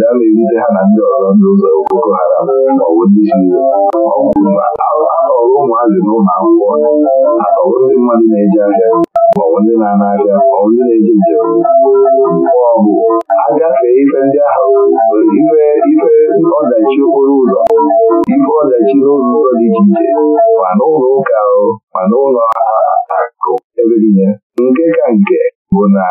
obodo a na-erite ha na ndị ọzọ ndị ụzọ Boko Haram maọbụ ndị Shizo ọrụ ụmụazị na ụlọ akwụkwọ ọrụ ndị mmadụ na-eji ahịa maọbụ ndị na-ana ahịa maọbụ ndị na-eji njem maọbụ agafee ife ndị ahụ ife ife ọdachi okporo ụzọ ife ọdachi n'ụlọ ụzọ dị iche iche ma n'ụlọ ụka ahụ ma n'ụlọ akụ ebe niile nke ka nke bụ na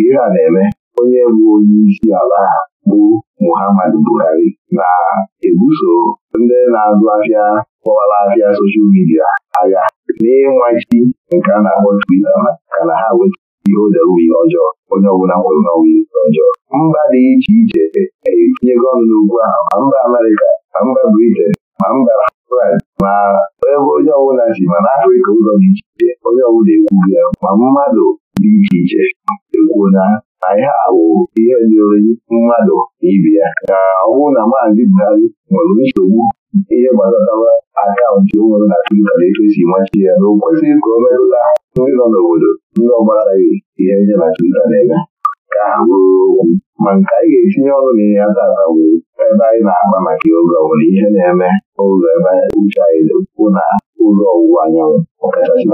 ihe a na-eme onye bụ onye isi ala ha bụ Muhammadu Buhari na-ebuso ndị na-azụ ahịa kpọwara ahịa soshal midia agha n'ịnwachi nke a na-akpọ Twita maka na ha weta ihe odewe ihe ọjọọ onye ọbụla nwere n'ọnwụ ihe ọjọọ mba dị iche iche etinyego ọnụ n'ugwu ahụ ma mba Amerịka ma mba Briten ma mba France ma ebe onye ọbụla si ma n'Afrịka ụzọ dị iche iche onye ọbụla ekwughị ya ma mmadụ dị iche iche ekwuo na anyị ha bụ ihe dịrị mmadụ na ibe ya na ọ na maazị Buhari nwere nsogbu ihe gbasatara akaụntụ nwere na Twitter na etu ya na o kwesịrị ka o ndị nọ n'obodo ndị ọgbara gbasaghị ihe ndị na Twitter na-eme ka bụrụ okwu ma nke anyị ga-etinye ọnụ na ihe atata bụ ebe anyị na-akpa maka oge ọ ihe na-eme ụzọ ebe uche anyị na ụzọ ọwụwa anyanwụ ọkachasị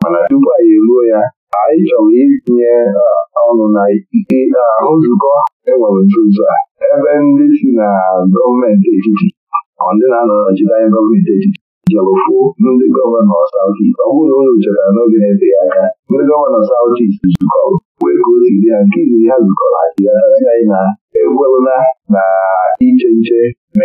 mana tupu anyị eruo ya anyị chọrọ itinye eh, ọnụ na ike na eh, nzukọ enwere nzuzo a ebe ndị si na gọọmenti etiti ndị na-anọ nọchite anya gọọmenti etiti jọrọfuo ndị gọvanọ South East ọ bụrụ na unu chọrọ n'oge na-eteghị aka ndị gọvanọ South East zukọrọ wee gosiri ha nke iziri ha zukọrọ ajiasị anyị na egwerụla na iche nche na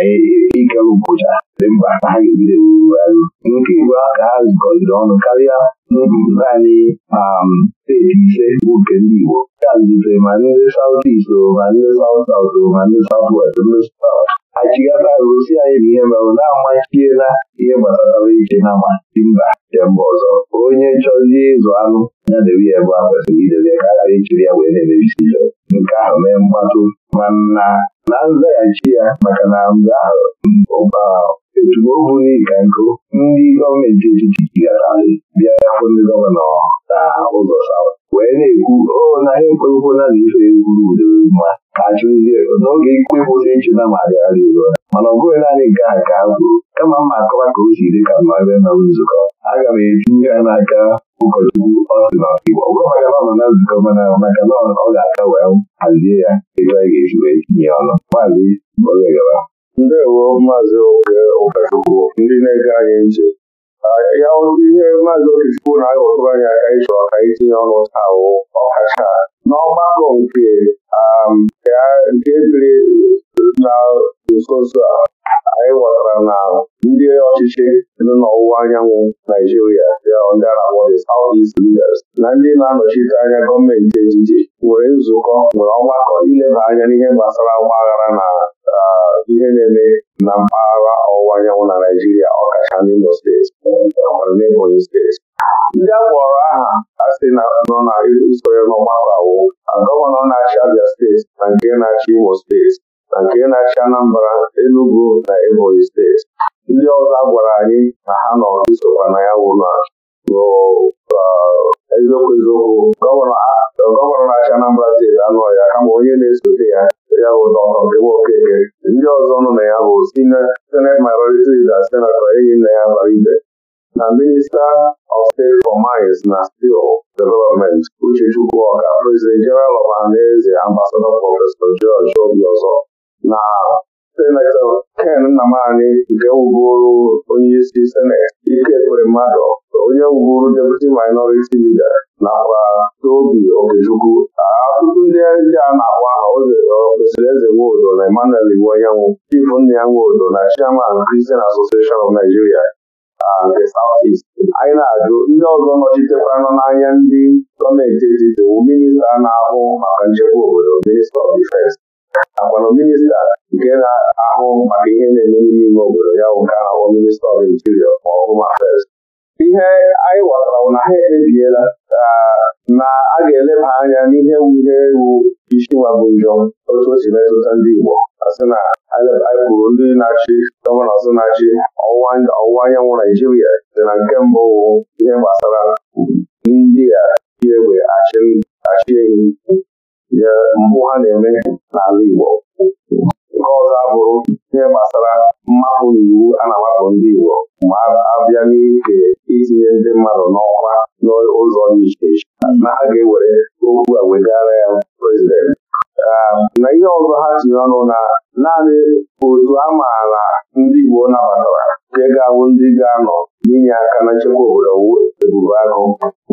ike ụbụcha dị mkpa ha ga-ebido ewuwe arụ nke Igbo a ka ha zukọrịrị ọnụ karịa n'obi naanị um a bụ nke ndị Igbo ya ma ndị South East ma ndị South South o ma ndị West ndị South anyị na ihe merụ na-amachiela ihe gbasara ije na mmasị mba nke mba ọzọ onye chọzie ịzụ anụ ya debe ya ebe a kwesịrị idebe ka ghara ya wee na-emebisi ife nke ahụ mee ma na nzaghachi ya maka na mgbe ahụ etu o bụghị ka nkụ ndị gọọmenti etiti jigatarị bịa ndị gọvanọ na ụzọ wee na-ekwu o oh, naghị ekwekwena na ife egwuru udo mma ka achụzie n'oge ikpe kwụsị na marịarị mana ọ bụghị naanị nke a ka a kwuru kama mma akọwa ka o si dị ka mma na nzukọ aga m etinye ya n'aka ụkọchukwu ọsị na igbo gwamaga mama na nzukọ mana maka na ọ ga-aka wee hazie ya ebe ga-esi wee tinye ndewo maazị Ụkachukwu ndị na-ege anyị nche, ya ihe maazị Okechukwu na-aghọtụ anya anyị chọrọ ka anyị tinye ọnụ taa ahụ ọkacha um, n'ọgbakọ nke ebiri na nsonso a anyị nwetara na ndị ọchịchị dị n'ọwụwa anyanwụ Naijiria ndị arakpọ the South East na ndị na-anọchite anya gọọmenti etiti nwere nzukọ nwere ọgbakọ ileba anya n'ihe gbasara ọgba na ihe na-eme na mpaghara ọwụwa anyanwụ na Naijiria ọkacha n'Imo steeti n'Ebonyi steeti ndị a aha na n'ọgbakọ awụ gọvanọ na-achị Abia steeti na nke na-achị Imo steeti na nke na-achị Anambra Enugu na Ebonyi steeti ndị ọzọ a gwara anyị na ha nọ isokwa na ya wụ na eziokwu eziokwu gọvanọ na-achị Anambra steeti anụ ya kama onye na-esote ya ya bụ dọkọ Nkewa Okeke ndị ọzọ nọ na ya bụ Senate Minority Leader Senatọ enyi nna ya Baribe na minista of State for Mines na Steel Development Uchechukwu Ọka President General of Anaeze Ambassador Prọfesọ George Obiọzọ na senetọ Ken Nnamani nke wuburu onyeisi seneti ike kwere mmadụ onye wuburu deputi minority leader nakwa Tobi Okechukwu ọtụtụ ndị ndị a na-agwa Mr. Eze Nwodo na Emmanuel Iwuanyanwụ Chief Nna ya Nwodo na Chairman Christian Association of Nigeria nke South East. anyị na-ajụ ndị ọzọ nọchitekwara n'anya ndị gọọmenti etiti bụ minista na-ahụ maka nchekwa obodo Minista of Defense agbana minista nke na-ahụ maka ihe na-eme n'ime obodo ya bụ ahụ minista ọf interior ma ọ mafes ihe anyị ghọtara bụ na ha ekpebiela uh, na a ga-eleba anya n'ihe ihe ewu isi nwa bụ njọ otu o si metụta ndị Igbo asị na anyị ndị na-achị gọvanọ sị na-achị ọwụwa anyanwụ Naijiria dị na nke mbụ ihe gbasara ndị a ji egbe achị enyi. je mbụ ha na-eme n'ala Igbo nke ọzọ abụrụ ihe gbasara mmapụ na iwu a na-amapụ ndị Igbo ma abịa n'ike itinye ndị mmadụ n'ọkwa n'ụzọ dị iche iche na ha ga-ewere okwu a wegara ya prezidenti na ihe ọzọ ha tinye ọnụ na naanị otu a maara ndị Igbo nabatara nke ga-awụ ndị ga-anọ n'inye aka na nchekwa obodo wu ebube agụ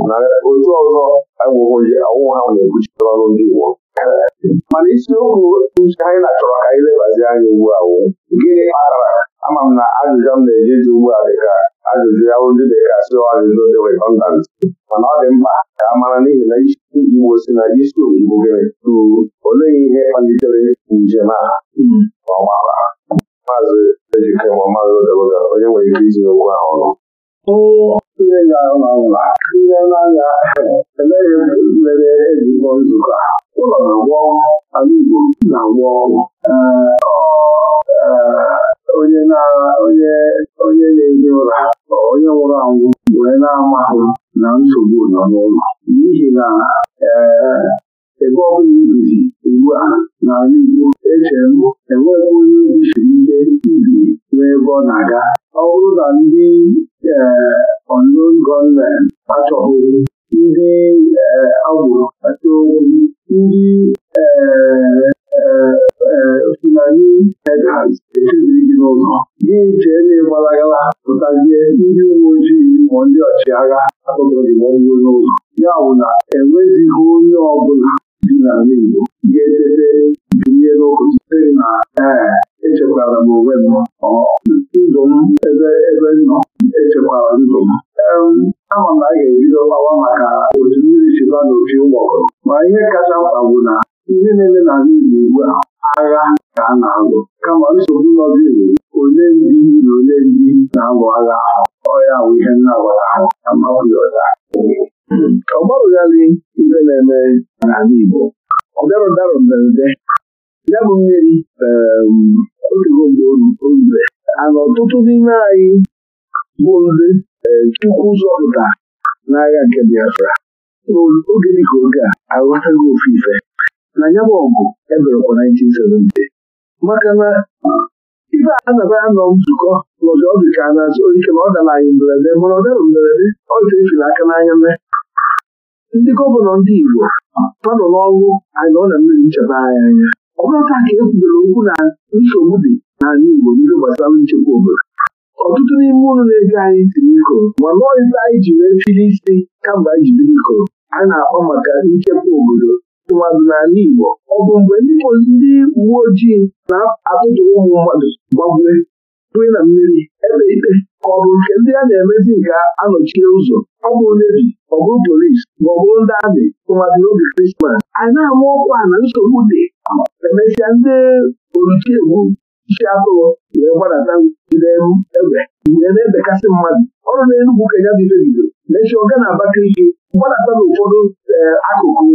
na otu ọzọ awụghị ha na-ekwuchite ọrụ ndị Igbo mana isiokwu anyị na-achọrọ ka anyị lebazi anya ugbu a wụ gịnị kpatara ama m na ajụjụ m na-eji eji ugbu a dịka ajụjụ ya ndị dịka sio ajụjụ dị redundant mana ọ dị mkpa ka a mara n'ihi na isi Igbo si na isi Igbo gịnị tụrụ olee ihe kpalitere njem a ọgbara maazị ejikọ ịma mmadụ odobodo onye nwere ike itinye okwu ahụ ọnụ ndị ihe n'anya eleghị mere eji nzukọ ụlọ na-agwọ ala Igbo na-agwọ onye na-eji ụra onye nwụrụ anwụ wee na-amahụ na nsogbu nọ n'ụlọ n'ihi na ebe ọ bụla ibizi ugbu a n'ala Igbo eche m enweghị onye ebisiri ihe ibi n'ebe ọ na-aga ọ bụrụ na ndị onon e, gọọmenti achọghị ndị e, agbụrụ kpata okwu ndị e, sinani hedras echeziri gị n'ụzọ gị jee na-egbalaghala pụtazie ndị uwe ojii ma ndị ọchịagha akpọgoro gị gbọgbuo n'ụzọ ya bụ na enwezighị onye ọ bụla dị n'ala Igbo ga-edebe binye n'ụbọchị site na ee echekwara m onwe m ndụ m ebe ebe nọ echekwara ndụ m ama m na a ga-ebido gbawa maka otu mmiri chiba na opi ụgbọgọrọ ma ihe kacha mkpa bụ na ihe na-eme na n'ala Igbo ugbu a agha ka a na-alụ kama nsogbu nọziri onye ndị na onye ndị na-alụ agha ahụ ọya bụ ihe na-agwara ahụ na mmaụya ọcha ọ gbarụgharị na-eme n'ala Igbo ọ darọdara mberede ya bụ mmiri um, otugo mgbe orure ana ọtụtụ n'ime anyị bụ ndị um, Chukwu zọpụta n'agha nke Biafra oge ka oge a aghọtaghị ofe ife na ya bụ ọgụ eberekwa 1970 maka na ife anaba anọ nzukọ n'ọdụ ọ ka a na-azụ ike na ọ dara anyị mberede mana ọ dara mberede ọ ife efila aka n'anya mee ndị gọvanọ ndị Igbo ah. nọ n'ọrụ ọ na mmiri ncheta anya anya ọ bụrụ ka e kwubere okwu na nsogbu dị n'ala Igbo n'ihe gbasara nchekwa obodo ọtụtụ n'ime ụlọ na ebi anyị tiri ikoro ma lụọ anyị ji wee fili isi kamgbe anyị jiri ikoro a na-akpọ maka nchekwa obodo tụmadụ n'ala Igbo ọ bụ mgbe ndị uwe ojii na-atụtụ ụmụ mmadụ gbagwee nri na mmiri ebe ikpe ka ọ bụ nke ndị a na-emezi nke anọchie ụzọ ọ bụ nevi ọ bụ polisi ma ọ bụ ndị amị tụmadị n'oge krismas anyị na-ama ọkwa na nsogbu dị emesịa ndị oluchiegbu isi atụrụ wee gbadata jide ebe wee na-ebekasị mmadụ ọrụ na ka ya bido bido mechie ọga na Abakaliki gbadata n'ụfọdụ eh, akụkụ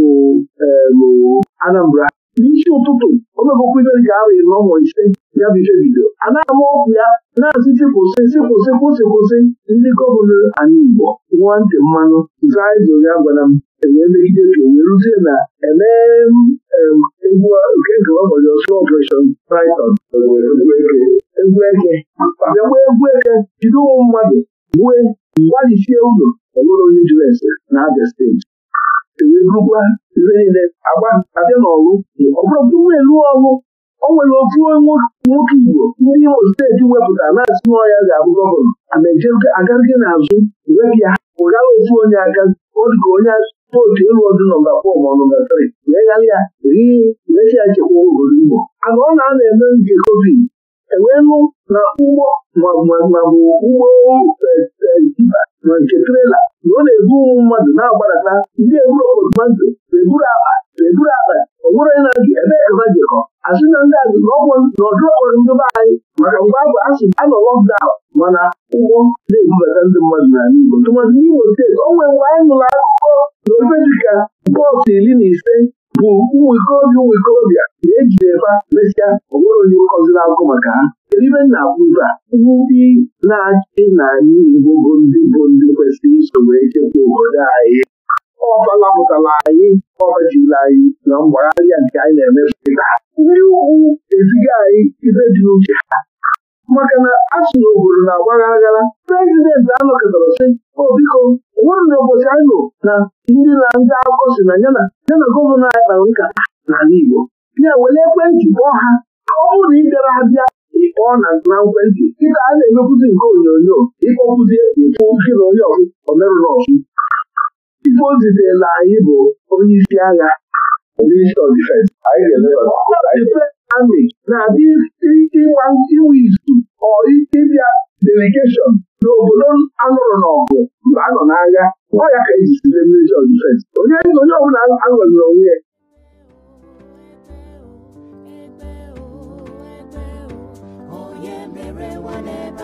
eh, Anambra n'isi ụtụtụ omebụkwudo ji awa iri ụmụ ise ya bụ ife bido a na-ama ọgwụ ya na-asịsị kwụsị sị kwụsị kwụsị kwụsị ndị gọvanọ anyị Igbo nwa ntị mmanụ zaa izo ya gwara m ewee megide ka wee ruzie na emee egwu nke nke ọbọchị ọsụ ọpration Triton egwu eke bịakwa egwu eke jide ụmụ mmadụ gbue mgbalisie ụlọ ọbụrụ onye jụrụ ese na Abia steeti ewerugwa ibe niile agba abịa n'ọrụ ọ bụrụ na elu ọrụ o nwere ofu nwoke Igbo ndị Imo steeti wepụta na-asị nwa ya ga-abụ gọvanọ ama agarịghị n'azụ wepịa ụgara ofu onye aga ọ dịka onye otu elu ọdụ nọmba fọm nọmba tri wee ghara ya wee si ya chekwa obodo Igbo ana ọ na-ana eme nke covid enwelu na ụgbọ mabụ ụgbọ tipa e, e, na nke trela na ọ na-ebu ụmụ mmadụ na-agbarata ndị eburu obodo eburu akpa eburu akpa ọ bụrụ na gị ebe e ka ha asị na ndị azụ na ọdụ ndị be anyị maka mgbe abụ asị anọ lọkdaụn mana ụgbọ na-ebubata ndị mmadụ n'ala Igbo tụmadị n'Imo steeti o nwere mgbe anyị nụrụ akụkọ na ofe dịka bọọsụ iri na ise bụ mwikọ obi mwikọ obi na-ejideba mesịa onwere onye na agụ maka ha kedu ibe nna akwụ ibe a ndị na-achị na anyị Igbo bụ ndị bụ ndị kwesịrị wee chekwa obodo anyị ọfala pụtara anyị ọbajila anyị na mgbagharịa nke anyị na-eme ndị ụkwụ eziga anyị ibe dị uche ha maka na a obodo na agbagha aghara prezidenti anọkọtara sị obiko oh, biko nwere na ụbọchị anyị na ndị na ndị akụkọ si na ya yana gọvanọ anyị kpara nka n'ala Igbo ya were ekwentị kpọọ ha ka ọ bụrụ na ị bịara abịa ịkpọọ na nkwentị dịka a na-emekwuzi nke onyonyo ịkpọkwuzi ịkpọ oke na onye ọzụ omerụrụ ọzụ ife o na anyị bụ onye isi agha onye isi ọdịfensi amị na-adị ịgba inwe izu ọ ịbịa delegeshọn n'obodo anụrụ n'ọgụ mba anọ n'agha ọ ya ka eji sile onye onye ọbụla anwere onwe ya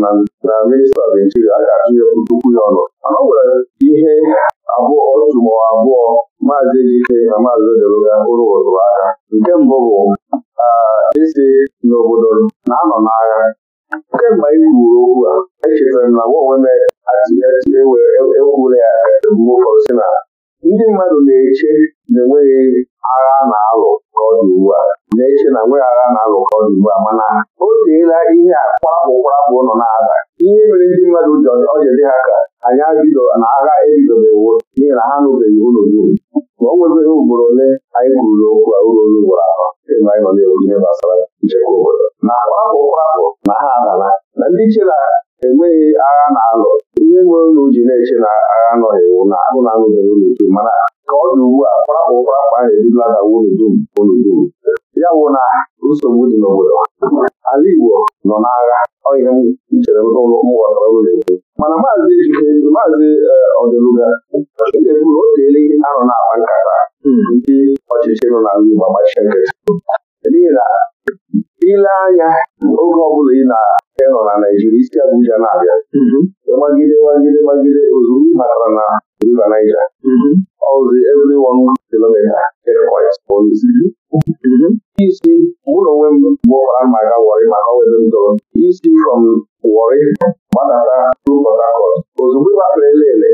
na minista Naijiria a ga-achụnye puku ya ọnụ mana ọ nwere ihe abụọ otu ma abụọ maazị Ejike na maazị Odeluga bụrụ ụtụrụ aka nke mbụ bụ isi n'obodo na-anọ n'agha kemgbe anyị kwuru okwu a echetara m na gwa onwe m ekwuru e, e ya ebumụfọdụ si na ndị mmadụ na-eche na enweghị agha na-alụ ka ọ dị ugbu a na nweghara na-alụkọ ugbu a mana o teela ihe a kwapụ kwapụ nọ na-ada ihe mere ndị mmadụ ọ dị ha ka anyị abido na agha ebidobewo n'ihi na ha nụbeghị ụlọ uru ma o nwebeghị ugboro ole anyị kwuru n'okwu a ụlọ olu ugboro atọ ebe anyị nọ na-ekwu ihe gbasara nchekwa obodo na kwapụ kwapụ na ha adala na ndị chela enweghị agha na-alụ ihe nwere ụlọ ji na-eche na agha nọ ewu na agụ na-anụbeghị ụlọ dum mana ka ọ dị ugbu a kparapụ kparapụ ahụ ebidola dawa ụlọ dum ụlọ dum ya bụ na nsogbu dị n'obodo ala Igbo nọ n'agha ọhịa m chere mụwatara ụlọ mana maazị Ejike maazị eh, Ọdeluga ga-ekwuru anọ na-akpa nkata hmm. ndị ọchịchị nọ n'ala Igbo agbachie nkịtị n'ihi na ile anya oge ọbụla ị na-enọ na naijiria isi Abuja na-abịa hmm. magide magide magide ozugbo na River Niger hmm. ọzi every isi ụlọ onwe m bụ amaga Warri maka owere isi from Warri gbadata ruo Port Harcourt ozugbo ele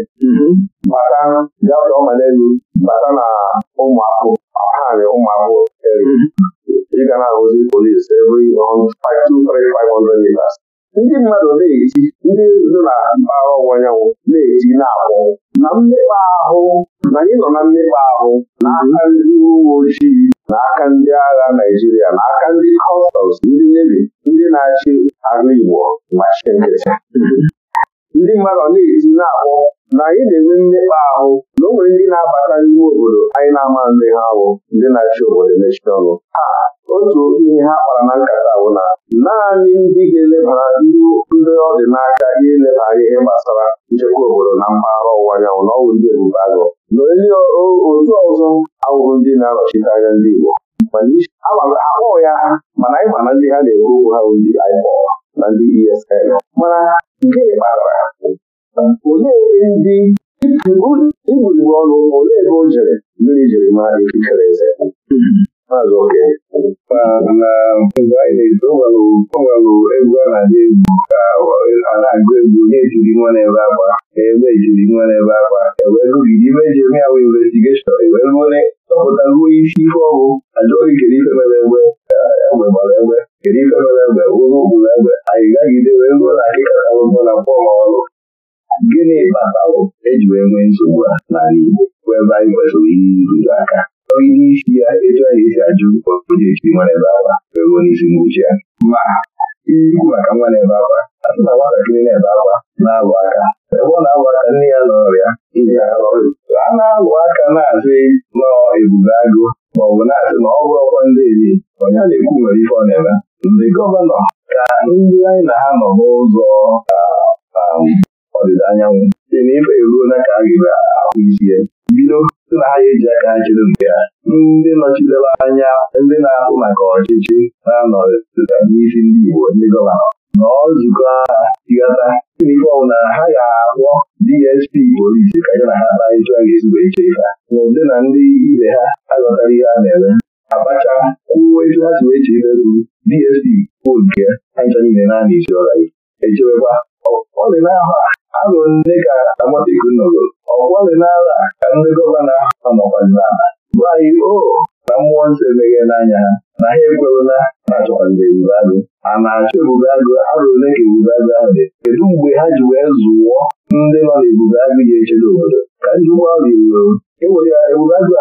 bata gafee ọmanelu bata na ụmụakwụ ọhanị ụmụ eri ịga na-ahụzi polisi every 500 meters ndị mmadụ na-eji ndị nzu na mpaghara ọwụwa anyanwụ na-eji na-akpọ na mmekpa ahụ na anyị nọ na mmekpa ahụ na aka ndị uwe ojii na aka ndị agha Naịjirịa na aka ndị kọstọms ndị nevi ndị na-achị ala Igbo machi nkịtị ndị mmadụ na-eti na-akpọ na anyị na-enwe mmekpa ahụ na o nwere ndị na-abata n'ime obodo anyị na-ama nne ha bụ ndị na-achị obodo mechie ọnụ otu ihe ha kpara na nkata bụ na naanị ndị ga-elebara ndị ọ dị n'aka ihe elebara ihe gbasara nchekwa obodo na mpaghara ọwụwa anyanwụ na ọgwụ ndị ebube agụ na onye otu ọzọ awụrụ ndị na-anọchite anya ndị Igbo akpọghị ya ha mana anyị ma na ndị ha na-ekwu okwu ha bụ ndị IPOB na ndị ESN mana gịnị kpatara ha olee ebe ndị igburigbo ọnụ ole ebe o jere mmiri jiri ma ekikere eze maazị oke mana mgbe anyị na-eto o nwelụ egwu a na-adị egwu ka a na-agụ egwu onye ejiri nwa n'ebe akwa ebe ejiri nwa ebe akwa ewee gụgide ibe eji eme ya bụ investigeshọn ewee ruo chọpụta ruo isi ife ọgwụ ajụghị kedu ife mere egbe egbe gbara egbe kedu ife mere egbe Ụlọ ụkpụrụ egbe anyị gagide wee ruo na akịkọtabụbụ na mkpọma ọrụ gịnị kpatalụ eji wee nwee nsogbu a na Igbo bụ ebe anyị kwesịrị ihe iruru aka onye isi ya etu anyị esi ajụ onye esi nwa n'ebe akwa onye isi n'uche ya ma ikwu maka nwa n'ebe akwa asị na nwatakịrị na-ebe akwa na-alụ aka ebe ọ na-alụ aka nne ya n'ọrịa a na-alụ aka na-asị nọ ebube agụ ma ọ bụ na-asị na ọ bụrụ ọkwa ndị ezi onye a na-ekwu nwere ife ọ na-eme ndị gọvanọ ka ndị anyị na ha nọ n'ụzọ ọdịda anyanwụ site na ife eruo na ka a ga-ahụ isi ya bido na anyị ji aka jiri nke ya ndị nọchitewa anya ndị na-ahụ maka ọchịchị na-anọ n'isi ndị Igbo ndị gọvanọ nọ nzukọ agha tịghata ife ọbụla ha ga agwọ DSP polisi ka ya na ha kparịta ga ezigbo iche ife ma ụdị na ndị ibe ha aghọtara ihe a na-eme Abacha kwuo etu ha si wee che ife bụrụ DSP kwuo nke ha ncha niile na-ana isi ọra echebekwa ọ dị n'ahụ a agụ nne ka amataiku nọgoro ọgbalịnala ka ndị gọvanọ ahụ nọkwazinala gwa o na mmụọ nsọ emeghe n'anya na ha ekwerela na achọkwaziri ebube agụ a na-achọ ebube agụ arụ ole ka ebube agụ ahụ dị kedu mgbe ha ji wee zụwọ ndị nọ n'ebube agụ ji echebe obodo ka njikwa ọ riro ewere ebube agụ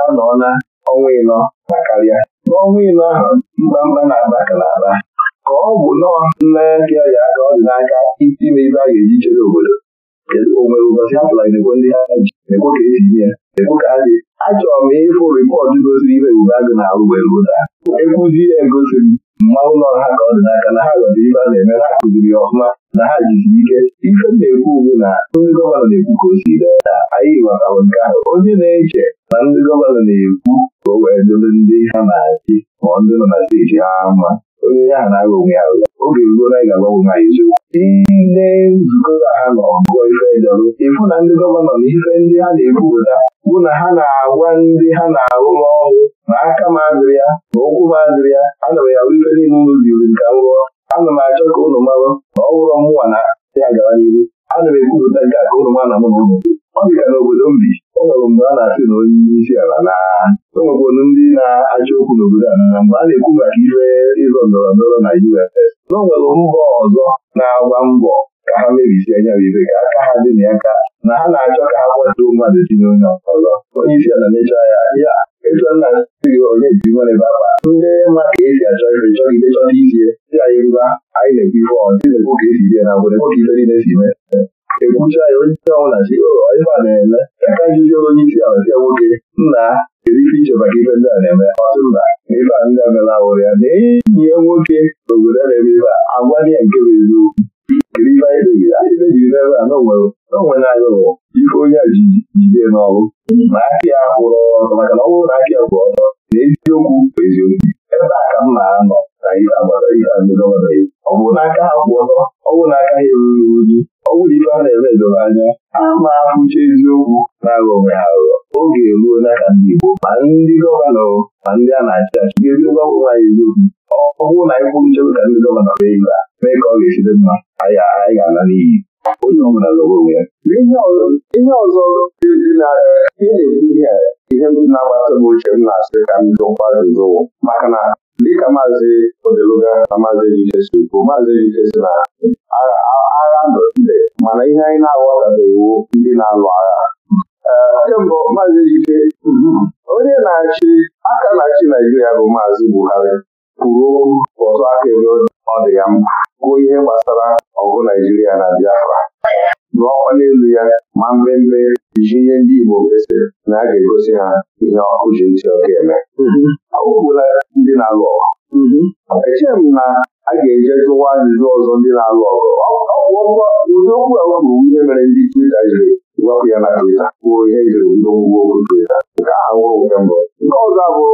na ọnwa ịnọ na karịa n'ọnwa ịnọ ahụ mkpamkpa na-aba ka na-aba ka ọ bụ nọọ nlereaka ya ka ọ dị n'aka ime ibe a ga-eji chebe obodo kedu ụbọchị a tụla emekwe ndị ha ekwe ka esi nye ya ekwe ka ha dị achọrọ m ịfụ rịpọtụ gosiri ibe Ebube Agụ na-arụ wee ruo taa ekwuzi ya egosi m mma ụlọ ha ka ọ dị n'aka na ha ghọtara ibe a na-eme ha kụziri ya ọfụma na ha jisiri ike ife na-ekwu ugbu na ndị gọvanọ na-ekwu ka o si na anyị ghọtara nke ahụ onye na-eche na ndị gọvanọ na-ekwu ka o wee dobe ndị ha na-achị ma ndị nọ na steeti ha mma onye onye ahụ na-aghọ onwe ya aghụghọ oge ruo na ị ga-agbanwe nwaanyị eziokwu ile nzukọ ha nọ gụọ ife jọrọ ịfụ na ndị gọvanọ na ife ndị ha na-ebupụta bụ na ha na-agwa ndị ha na arụ ọrụ na aka m azụrụ ya na ụkwụ m azụrụ ya ana m ya ahụ ife niile ụlọ ziri m ka m rụọ ana m achọ ka ụlọ marụ na ọ bụrụ mụnwa na ya gara n'ihu ana m ekwupụta nke a ka unu ma na mụ na unu ọ bịara n'obodo m bi o nwere mgbe a na-asị na onye isi ala na o nwekwara ndị na-achọ okwu n'obodo a mgbe a na-ekwu maka ibe ịzọ ndọrọ ndọrọ na UFS na o nwere mba ọzọ na-agba mbọ ka ha mebisi anya ibe ka aka ha dị na ya ka na ha na-achọ ka ha kwatuo mmadụ si n'onye ọzọ onye isi ala na-echa ya ya ịchọ nna gị onye ji nwere ebe akpa ndị ma ka esi achọ ife chọgide chọta isi dị anyị ngwa anyị na-ekwu ife ọ dị na-ekwu ka esi bie na ngwere nwoke ife niile si mee ekwucha ya onye isi ọbụla si na-eme aka njuzi onye isi ala si nwoke nna kedu ife iche maka ife ndị a na-eme mba ife a ndị amela ya na enyi nwoke obodo na-eme ife a agwa ya nke bụ eziokwu kedu ife anyị kpebiri anyị n'ebe a n'onwere anyị ife onye a ji jide n'ọrụ ma akị ya kwụrụ ọtọ maka na ọ bụrụ na ya kwụrụ ọtọ na eziokwu bụ eziokwu ebe a ọ bụrụ ha kwụ ọtọ ọ bụrụ ibe ha na-eme edoro anya ama ahụcha eziokwu na-aghọ onwe aghụghọ oge eruo ka ndị Igbo ma ndị gọvanọ ma ndị a na-achị achị ga-ebido gwanwe anyị eziokwu ọ bụrụ na anyị kwuru nchekwa ka ndị gọvanọ mee ibe a mee ka ọ ga-esite mma anyị ga-ala n'iyi onye ọ bụla zọrọ onwe ya ihe ọzọ na-ekwu ihe m na-agbata m uche m na-asị ka m dụkwa zụwo maka na dịka maazị odeluga na maazị ejike si bụ maazị ejike si na agha ndọchide mana ihe anyị na-aghọtabeghị ndị na-alụ agha kemgbe maazị ejike onye na-achị aka na-achị naijiria bụ maazị buhari kwuru ọzọ aka ebe ọ dị ya mkpa kwuo ihe gbasara ọgụ naijiria na biafra lụọ ọkwa n'elu ya ma mmemme ji ihe ndị Igbo kwesịrị na a ga-egosi ha ihe ọkụ ji ntị ọkụ eme mm-hmm. awụpụla ndị na-alụ ọgụ mm-hmm. echeghị m na a ga-eje jụwa ajụjụ ọzọ ndị na-alụ ọgụ ụdị okwu ihe mere ndị Twitter jiri ya na kwuo ihe jiri ndị okwu nke ahụhụ nke mbụ nke ọzọ bụ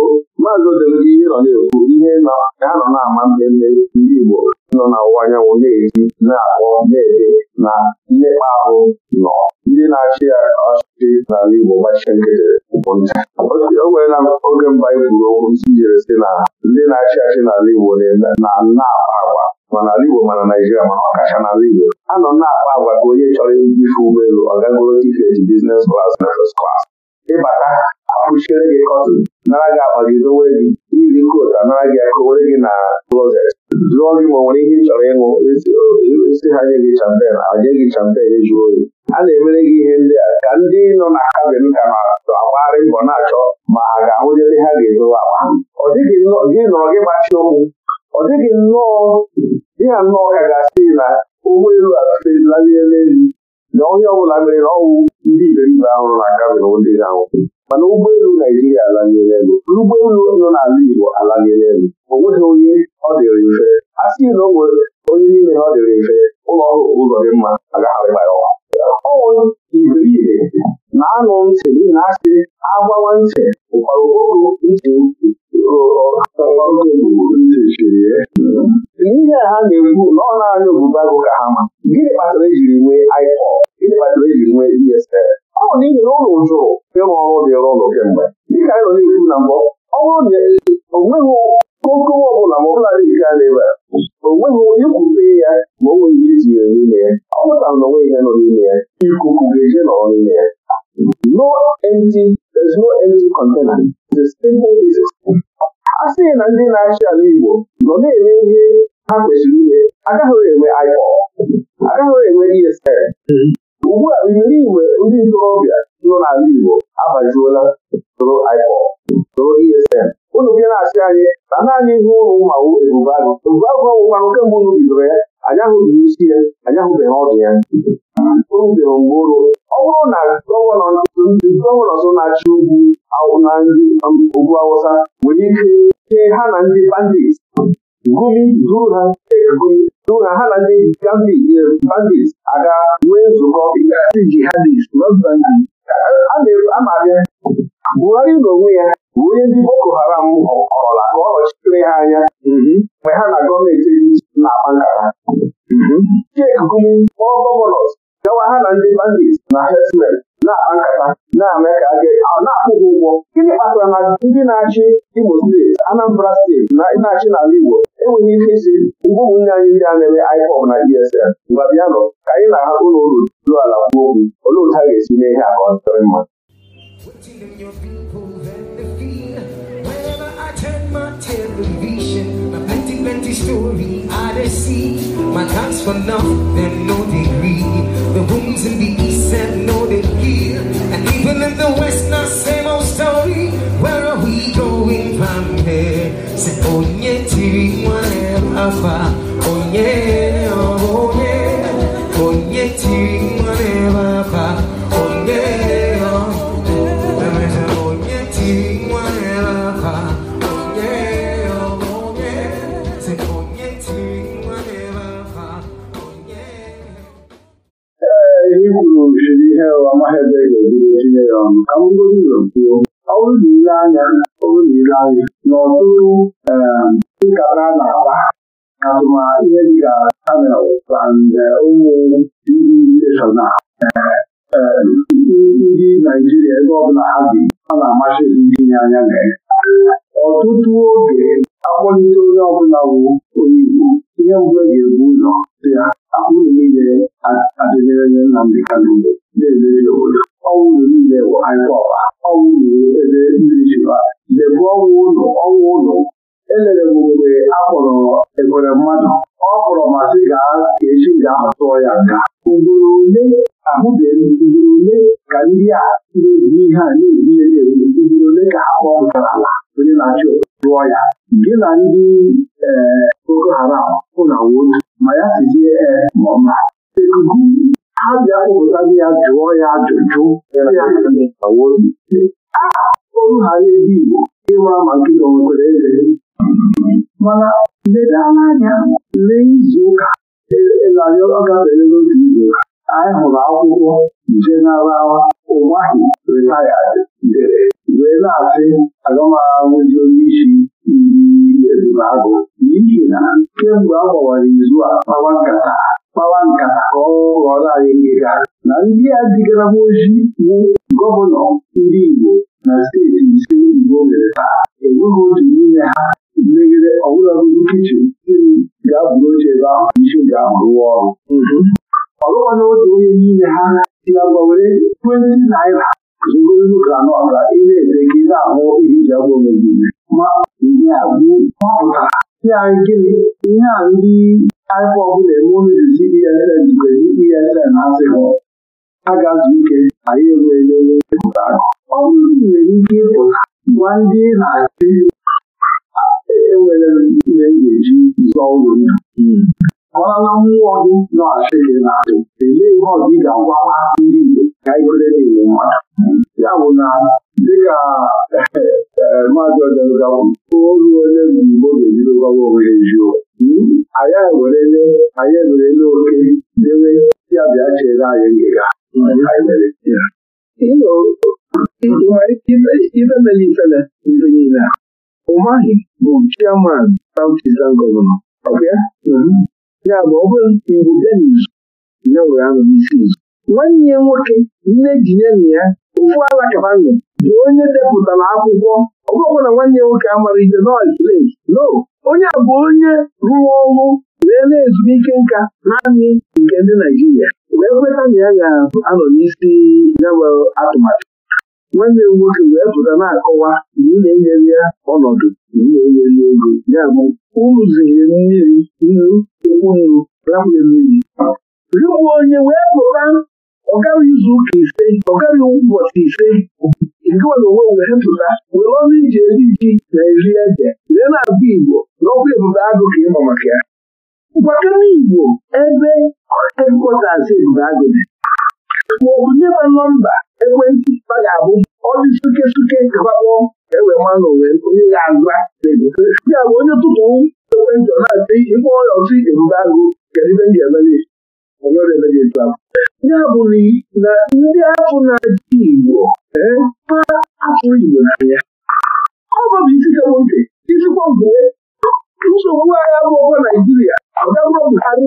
maazị ihe nọ na-ekwu ihe ha nọ na-ama mmemme ndị Igbo nọ na ụwa anyanwụ ga-eji na-akpọ na-ede na mmekpa ahụ nọ ndị na-achị ya ọchịchị n'ala Igbo gbachie nkịtị o nweela oge mba kwuru okwu isi jere sị na ndị na-achị achị n'ala Igbo na na-akpa ma Igbo ma na Naịjirịa ọkacha n'ala Igbo a nọ na-akpa agwa ka onye chọrọ ife ụgbọelu ọ gagoro tiketi biznes klas na fes klas ịbata akpụchiere gị kọtịn nara gị akpagidowe gị iri kotu anara gị akụwere gị na klọzet jụọ gị ma nwere ihe chọrọ ịṅụ isi ha nye gị champen aje gị champen ejuo oyi a na-emere gị ihe ndị a ka ndị nọ na be m ka na-agbagharị mbọ na-achọ ma ha ga-ahụnyere ha ga-edowe akpa ọ dịghị nnọọ gị gbachie okwu ọ dịghị nnọọ dị ha nnọọ ka ga-asị na ụgbọ elu atụtelalie n'elu na onye ọ bụla mere na ọnwụ ndị ibe mba ahụrụ na aka ndị ga-anwụ mana ụgbọelu Naijiria alanyere elu ụgbọelu nọ n'ala Igbo alanyere elu o nweghị onye ọ dịrị mfe a sị na o onye niile ọ dịrị mfe ụlọ ọrụ ụzọ dị mma agagharịma ya ọwa ọnwụ iberibe na-anụ ntị n'ihi na asị agbawa ntị ụkwara oru ntị n'ihe a ha na-ekwu na ọ naanị obubago ka ha ma gịnị kpatara ejiri nwee iPod gịnị kpatara ejiri nwee DSL e ọ bụ n'ihi na ụlọ jụrụ ịrụ ọrụ dịrị ụlọ kemgbe dịka anyị nọ n'ihu na mbụ ọ bụrụ na o nweghị okowe ọbụla ma ọbụla dị nke a na-ebe o nweghị ikwute ya ma o nweghị iji ya n'ime ya ọ pụtara na onweghị ihe nọ n'ime ya ikuku ga-eje nọrọ n'ime ya no empty there's no empty container the simple is a sịghị na ndị na-achị ala Igbo nọ na-eme ihe ha kwesịrị ime agaghị enwe IPOB agaghị enwe ESN ugbu a imere igwe ndị ntorobịa nọ n'ala Igbo agbajuola soro IPOB soro ESN Ụlọ bịa na achị anyị na naanị ihe ụlọ mmanwụ Ebubeagụ Ebubeagụ ọnwụkwanụ kemgbe unu bidoro ya anyị ahụghị isi ya anyị ahụbeghị ọdụ ya o rubeghị mgbe ụlọ ọ bụrụ na gọvanọ so na-achị ugwu na ndị um, ugwu Awụsa nwere ike chee ha na ndị bandit gụmi duru ha tee tụ na ha na ndị eh, bandit aga nwee nzukọ ịgasị jihadist amaghị Buhari n'onwe ya bụ onye ndị Boko Haram ọkọla ka ọ nọchitere ha anya mhm. mgbe ha na gọọmenti etiti na-akpa nkata mhm. Chike Gumi kpọọ gọvanọs gawa ha na ndị bandit na herdsmen na-akpa na-eme ka a na-akwụ gị ụgwọ gịnị kpatara na ndị na-achị Imo steeti Anambra steeti na na-achị n'ala Igbo enweghị ike isi mgbe ụmụnne anyị ndị a na-eme IPOB na ESN mgbe bịanụ ka anyị na agha ụlọ ụlọ ruo ala kwuo okwu olee otu a ga-esi mee ihe a ka ọ dịrị mma Turn my television, my plenty, plenty story see, My time's for nothing, no degree. The wounds in the east and no degree. And even in the west, not same old story. Where are we going from here? Say, oh yeah, TV, one alpha. Oh yeah, oh yeah. Oh yeah, TV, one alpha. ọma ha ebe ga-ebido tinye ya ọnụ ka m godo ụzọ kwuo ọ bụrụ na ile anya ọ bụrụ na ile anya na ọtụtụ nkata um, na-akpa atụma ihe dịka panel na ụmụ um, ndị ise na ndị Naijiria ebe ọbụla ha bi ọ na-amasị itinye anya na ya ọtụtụ oge akpọlite onye ọbụla wụ onye Igbo ihe mbụ e ga-ebu ụzọ dị ya akpụrụ niile na Nnamdị Kanụ na-emere n'obodo ọnwụ unu niile bụ aịkọba ọnwụ ebe ndị jiba debụ ọnwụ ụlọ ọnwụ ụlọ elere m mgbe a kpọrọ ebere mmadụ ọ kpọrọ masị gaa ka echi ga-ahụ ya nka ugboro ole ahụbeghị ugboro ole ka ndị a na-eji ihe a na-eji ya na-ewu ugboro ole ka ha kpọpụtara ala onye na-achị tụọ ya gị na ndị ee Boko Haram ụna wotu ma ya sizie ee eh, ma ha bịa ya jụọ ya ajụjụ olu ha na Igbo ịmara ma nkịta nwekwara eze mana ledala anya lee izuụka elarịọ e, n'otu izuụka anyị hụrụ akwụkwọ jeneral ụmahi ritayad dere wee na-asị onye isi ndị tụrụ agụ n'ihi na kemgbe a gbawara izu a kpawa nkata kpawa nkata ka ọ ghọrọ anyị ngịga na ndị a digara ojii bụ gọvanọ ndị Igbo na steeti ise Igbo mere taa enweghị otu n'ime ha megide ọbụlagodi kichin si ga-abụrụ oche ebe ahụ isi ga-ahụ rụọ ọrụ ọlụwana otu onye n'ime ha si agwa were 20 naira zụro granọt ka ị na-ete ka ị na-ahụ ihe iji agwa omejiri ma ndị a bụ ọpụtara ya gịnị ihe a ndị IPOB na-eme unu jizi ESN jikwezi ESN asịrị agazu ike anyị enweele pụta akụ ọ bụrụ nwere ike ịpụta gwa ndị na-achị enwere ihe ga-eji zụọ ụlọ ndụ gwala na mmụọ gị nọ achị gị na-atụ elee ihe ọ gị ga-agwala ndị Igbo ka anyị kwere na ya bụ na dịka eh, maazị ọjọgakwu oru onye mgbe ga-ebido gbawa onwe ya eziokwu ewerele anyị ewerele oke dewe ya bịa chere anyị ngịga nwere ike ifele niile a Umahi uh, bụ mm-hmm. ya bụ ọ bụrụ iwu Denis ya were anọ n'isi nwanne ya nwoke nne jinyenụ ya ụfụ ala kabanụ bụ onye depụtara akwụkwọ ọgwụgwọ na nwanne ya nwoke amara ihe no onye a bụ onye rụrụ ọrụ na-ele ezumike nka naanị nke ndị Naijiria wee kweta na ya ga-anọ n'isi yawe atụmatụ nwanne m nwoke wee pụta na-akọwa na ị na-enyere ya ọnọdụ na ị na-enyere ego ya bụ ụrụzire mmiri nnu ụkwụ nnu rapụye mmiri rikwa onye wee pụta ọ gaghị izu ụka ise ọ gaghị ụbọchị ise ngịwere onwe wee hepụta were ọnụ ije eri ji na eri ede wee na-abụ Igbo n'ọkwa ebube agụ ka ịnọ maka ya mgbakana Igbo ebe hedkọtas ebube agụ dị maọbụ nye ma nọmba ekwentị a ga-abụ ọdị suke suke gbakpọ ewe mmanụ wee onye ga-aza ya bụ onye tụtụ ekwentị ọ na-ata ihe kpọọ ya ọtụ ebube agụ kedu ibe m ga-emere ya ya abụghị na ndị ahụ na-ajụ Igbo eh, ha afụrụ Igbo n'anya ọ bụ isi kabụ ntị isikwa mgbe nsogbu agha bụọba Naijiria abịabụrụ Buhari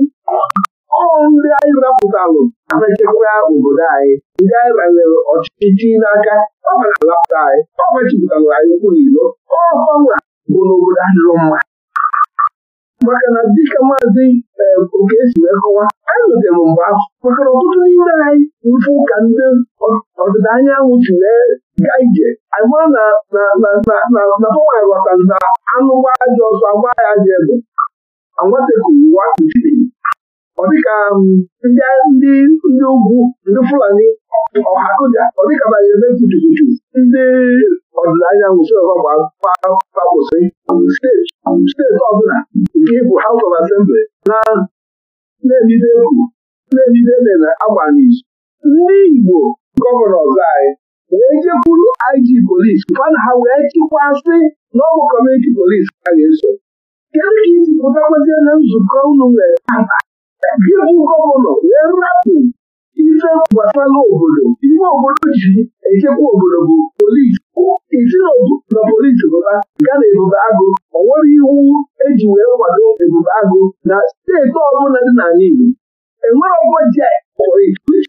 ọ ndị anyị rapụtalụ na-echekwa obodo anyị ndị anyị banyere ọchịchị n'aka ọ na-alapụta anyị ọ machipụtalụ e anyị ụkwụ n'ilo ọkọnwa bụ n'obodo adịrọ mma maka na dịka maazị oke esi wee kọwa anyị nụtere mgbe ahụ maka na ọtụtụ n'ime anyị mfe ụka ndị ọdịda anyanwụ si wee gaa ije anyị mara na tụwanyị ghọtara na anụ dị ọzọ agba ya ji ebe anwatekuru ụwa kuchiri ọ dịka ndị ndị ugwu ndị Fulani ọha kụja ọ dịka banyere ebe kuchukuchu ndị ọdịda anyanwụ si gbagwụsị steeti steeti ọbụla nke ịbụ House of na na-ebido egwu na-ebido emere ndị Igbo gọvanọ anyị wee jekwuru IG polisi ha wee chịkwasị na ọ kọmuniti polisi ga-eso kedu ka isi pụtakwazie na nzukọ unu nwere gọvanọ wee rapụ ife gbasara obodo ime obodo ji echekwa obodo bụ polisi ichirou na polisi bụba ya na ebube agụ ọ nwere iwu eji wee kwado ebube agụ na steeti ọbụla dị n'ala Igbo enwere ọgwọ ji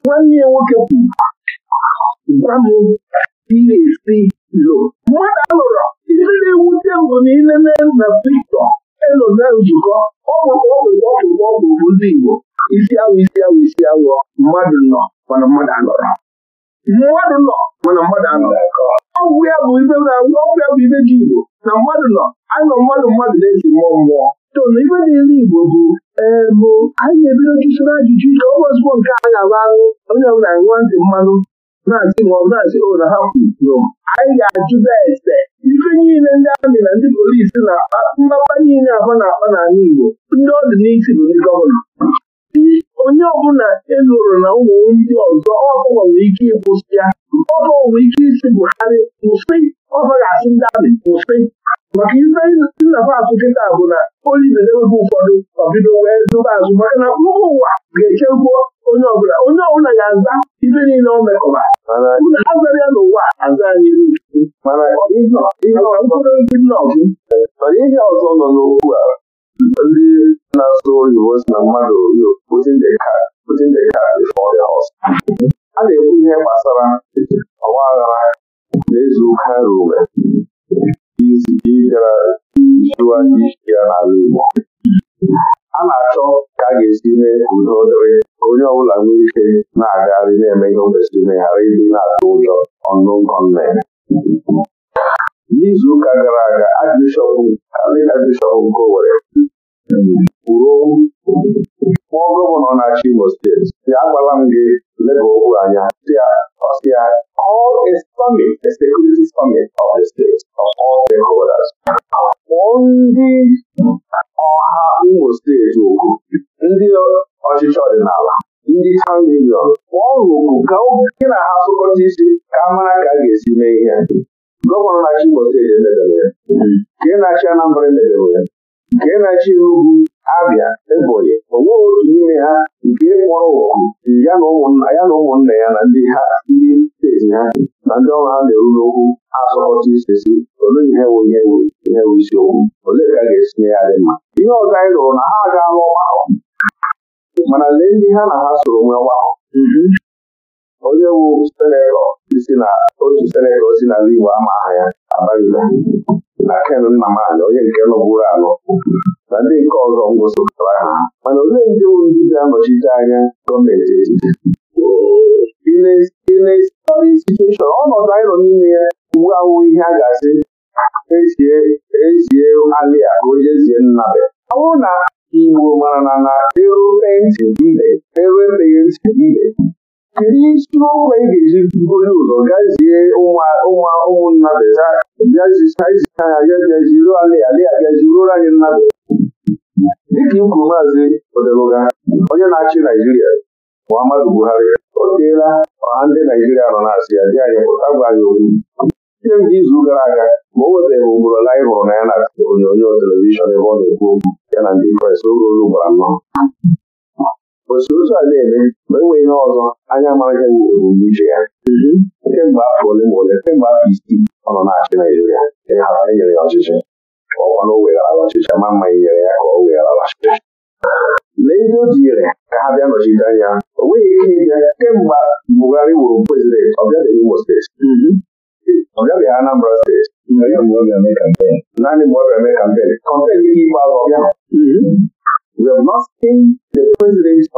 nwanne ya nwoke kwuru gwa m esi lo mmadụ alụrụ ihe na-ewute mbụ na ilele na Victor elo na njikọ, ọgwụgwọ ọgwụgwọ ọgwụgwọ ọgwụ bụ ndị Igbo isi awụ isi awụ isi awụ mmadụ nọ mana mmadụ anọrọ mmadụ nọ mana mmadụ anọrọ ọgwụ ya bụ ibe na-agwụ ọgwụ ya bụ ibe dị Igbo na mmadụ nọ anọ mmadụ mmadụ na eji mmụọ mmụọ tonu ibe niile Igbo bụ ee eh, bụ anyị na-ebido jụsoro ajụjụ ike ọgwụ ozugbo nke a ga-agba ahụ onye ọbụla nwa ndị mmanụ na-asị ma ọ bụ na-asị o oh, na ha kwuru anyị ga-ajụba ese ife niile ndị amị na ndị polisi na-akpa niile afọ na-akpa n'ala Igbo ndị ọdịnihu bụ ndị gọvanọ onye ọbụla eluru na ụmụ ndị ọzọ ọkụ nwere ike ịkwụsị ya ọkụ nwere ike isi Buhari kwụsị ọzọ ga-asị ndị amị kwụsị maka ife nnaba azụ kịta bụ na oli na-enweghị ụfọdụ ọbido wee zụba azụ maka na mba ụwa ga-echegbuo onye ọbụla onye ọbụla ga-aza ibe niile o mekọba azara ya n'ụwa aza anyị ihe ọzọ nọ n'okwu a ndị na-asụ oyibo si na mmadụ a na-ekwu ihe gbasara ọwa aghara na izu ụka rube ịbịara jiwa isi ya n'ala Igbo a na-achọ ka a ga-esi mee udo dịrị onye ọbụla nwee ike na-agagharị na-eme ihe o kwesịrị ime ịdị na-atụ ụjọ ọnụ nkọ n'izu ụka gara aga Archbishop Anglican bishọp nke Owerri kwuru kpụọ gọvanọ na-achị Imo steeti ya agbala m gị leba okwu anya ọsịa ndị ọha Imo steeti okwu ndị ọchịchị ọdịnala ndị union okwu ka gị na ha sụkọta isi ka a mara ka a ga-esi mee ihe gọvanọ na-achị Imo steeti emebere ya nke na-achị Anambra emebere ya nke na-achị Enugu Abia Ebonyi o nweghị otu n'ime ha nke kpọrọ oku ya na ụmụnna ya na ndị steeti ha na ndị ọrụ ha na-eru n'okwu asọrọchi sesi olee ihe wu ihe wu ihe wu isiokwu olee ka a ga-esinye ya dị mma ihe ọzọ anyị lụrụ na ha agaala ọgbakọ mana lee ndị ha na ha soro nwee ọgbakọ mhm. onye wu senetọ ndị si na otu Senegal si n'ala Igbo ama aha ya abaghịla na Ken Nnamani onye nke nọbụrụ anọ na ndị nke ọzọ ngwụsịpụtara ha mana ole ndị bụ ndị ga-anọchite anya gọọmenti etiti ilesitueshọn ọnọdụ anyị nọ n'ime ya uwe ahụ ihe a ga-asị ezie ezie alị a ka onye zie nna ya ọ bụrụ na Igbo mara na na eru ntị ibe eru ekpeghị ntị ibe kedu isi okwu anyị ga-eji buru ụzọ gazie ụmụnna ụmụnnabịa bịazicha ha ya bịaziru alị alị bịaziruoro anyị nnabịa dịka ikwu maazị Odeluga onye na-achị Naijiria Muhammadu Buhari o teela ọha ndị Naijiria nọ na-asị ya dị anyị pụta gwa anyị okwu kemgbe izu gara aga ma o wetara ugboro ole anyị hụrụ na ya na onyonyo telivishọn ebe ọ na-ekwu okwu ya na ndị Kraịst oge olu gbara o si ụzọ a na-eme ma e ihe ọzọ anya amaghị wụ ebumnuche ya mhm. kemgbe afọ ole ma ole kemgbe afọ isii ọ nọ na-achị Naijiria enyere ya ọchịchị ọwa na ọchịchị ma mma nyere ya ka ọ ọchịchị lee ndị o jinyere ka ha bịa nọchite anya o nweghị ike ịbịa kemgbe Buhari wụrụ prezidenti ọ bịabeghị Imo steeti mhm. Anambra steeti mhm. naanị mgbe ọ mee kampen kọmpen ọ na-eje Gombe ọ na-eje ọ na-eje ọ na-eje ọ na-eje anyị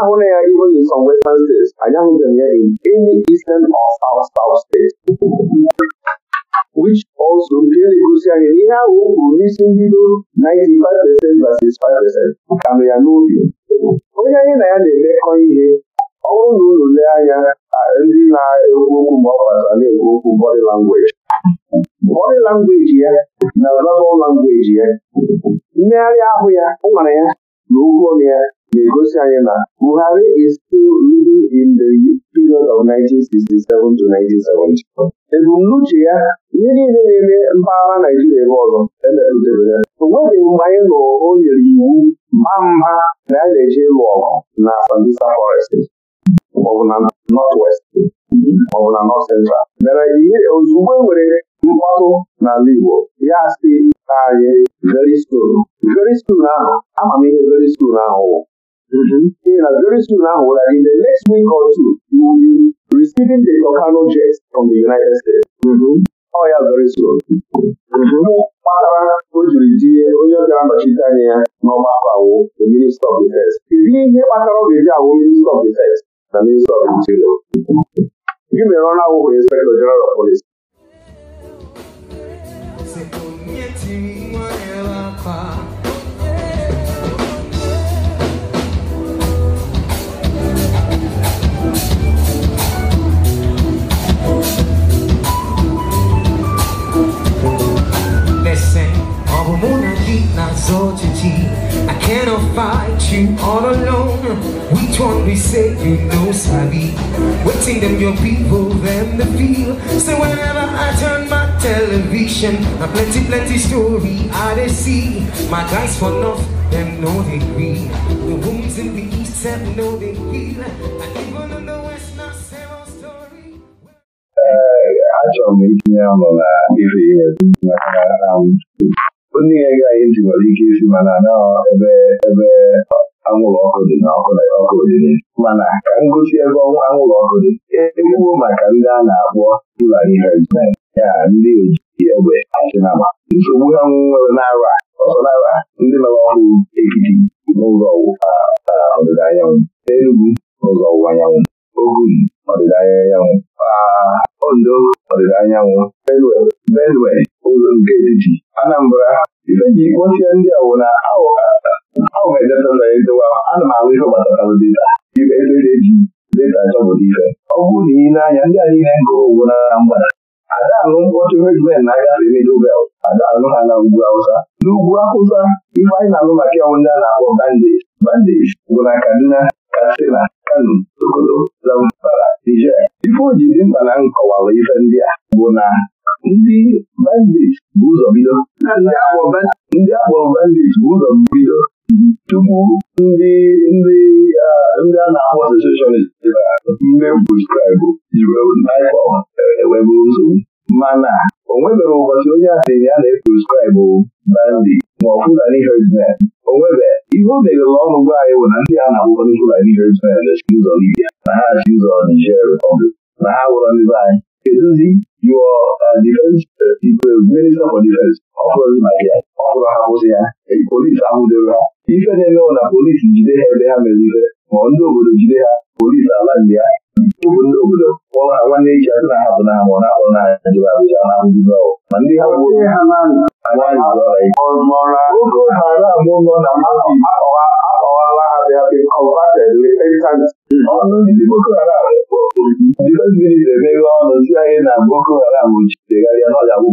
ahụla ya even in some Western States anyị ahụbeghị ya in any Eastern or South South which also nke na-egosi anyị na ihe ahụ o kwuru n'isi mbido 95 percent versus 5 percent ka nọ ya n'obi onye anyị na ya na-emekọ ihe ọ bụrụ na unu lee anya ndị na-ekwu okwu mgbe ọ kpatara na-ekwu okwu bọdị langweji bọdị langweji ya na verbal langweji ya mmegharị ahụ ya nwara ya na okwu ọnụ ya na-egosi anyị na Buhari is still living in the period of 1967 to 1970. ebumnuche ya ihe niile na-eme mpaghara Naijiria ebe ọzọ emetụtara ya o nweghị mgbe anyị nụrụ o nyere iwu mba mba na a na-eje ịlụ ọgụ na Sambisa Forest maọbụ na nọt west maọbụ na nọt central mere ozugbo e nwere mkpọtụ n'ala Igbo ya si na naanị very soon very soon ahụ ama m ihe very soon ahụ wụ Ee na very soon ahụ wụla in the next week or two you will be receiving the Volcano jets from the United States ọ ya very soon kpatara o jiri tinye onye ọ ga-anọchite anya ya n'ọgbakọ awụ the Minister of Defense kedu ihe kpatara ọ ga-eji awụ Minister of Defense na Ministry of Gị mere na awụhụ na General of Police. I cannot fight you one say you know Sabi? Waiting them your people, them the feel So whenever I turn television A plenty, plenty story I they see My guys for north, them know they agree The wombs in the east, them know they feel And even in the west, not zero story Achọrọ m itinye ọnụ na ife ihe maka onye nwere ike isi mana na ebe ebe anwụrụ ọkụ dị na ọkụ na ọkụ dị mana ka m gosi ebe ọnwa anwụrụ ọkụ dị ekwuo maka ndị a na-akpọ Fulani herdsmen ya ndị oji egbe achịnama nsogbu ha nwere n'ara ọsọnara ndị nọrọ ọhụrụ ekiti n'ụzọ ọdịda anyanwụ Enugu n'ụzọ ọwụwa anyanwụ Ogun ọdịda anyanwụ Ondo ọdịda anyanwụ Benue ụzọ nke etiti Anambra ife ji kpọchie ndị awụna ahụ ọgwụ ejeta mere ndewa ana m ahụ ihe gbatatara deta ibe ebe na-eji deta ife ọ bụrụ na ị na-anya ndị anyị ihe gụrụ owu ada mkpọtụ regiment na-agafe Middlebelt ada anụ ha na ugwu Awụsa n'ugwu ife anyị na-alụ maka ọnwụ ndị a na-akpọ bandage bandage bụ na Kaduna Katsina Kano Sokoto Zamfara Niger ife o ji dị mkpa na nkọwalụ ife ndị a bụ na ndị bụ ụzọ bido ndị akpọrọ bandage bụ tupu ndị ah, ndị ndị a na-akpọ secessionist ndị nsogbu mana o nwebere ụbọchị onye asị ya na-eprescribe bandi ma ọ ihe o meghere ọnụ gwa anyị bụ na ndị a na-akpọ ndị Fulani herdsmen ụzọ na ha ụzọ Niger na ha ndị anyị ya ahụ ife na-emewo na polisi jide ha ebe ha mere ife ma ndị obodo jide ha polisi ala ndị ya bụ ndị obodo kpọrọ ha nwanne echi asị na ha na na akpọrọ n'anya jere abụja na ndị ọgwụ ma ndị ha bụ na akọwala ha ọnụ ndị Boko Haram difensi minista emeghe ọnụ si anyị na Boko Haram jidegharịa n'ọya bụ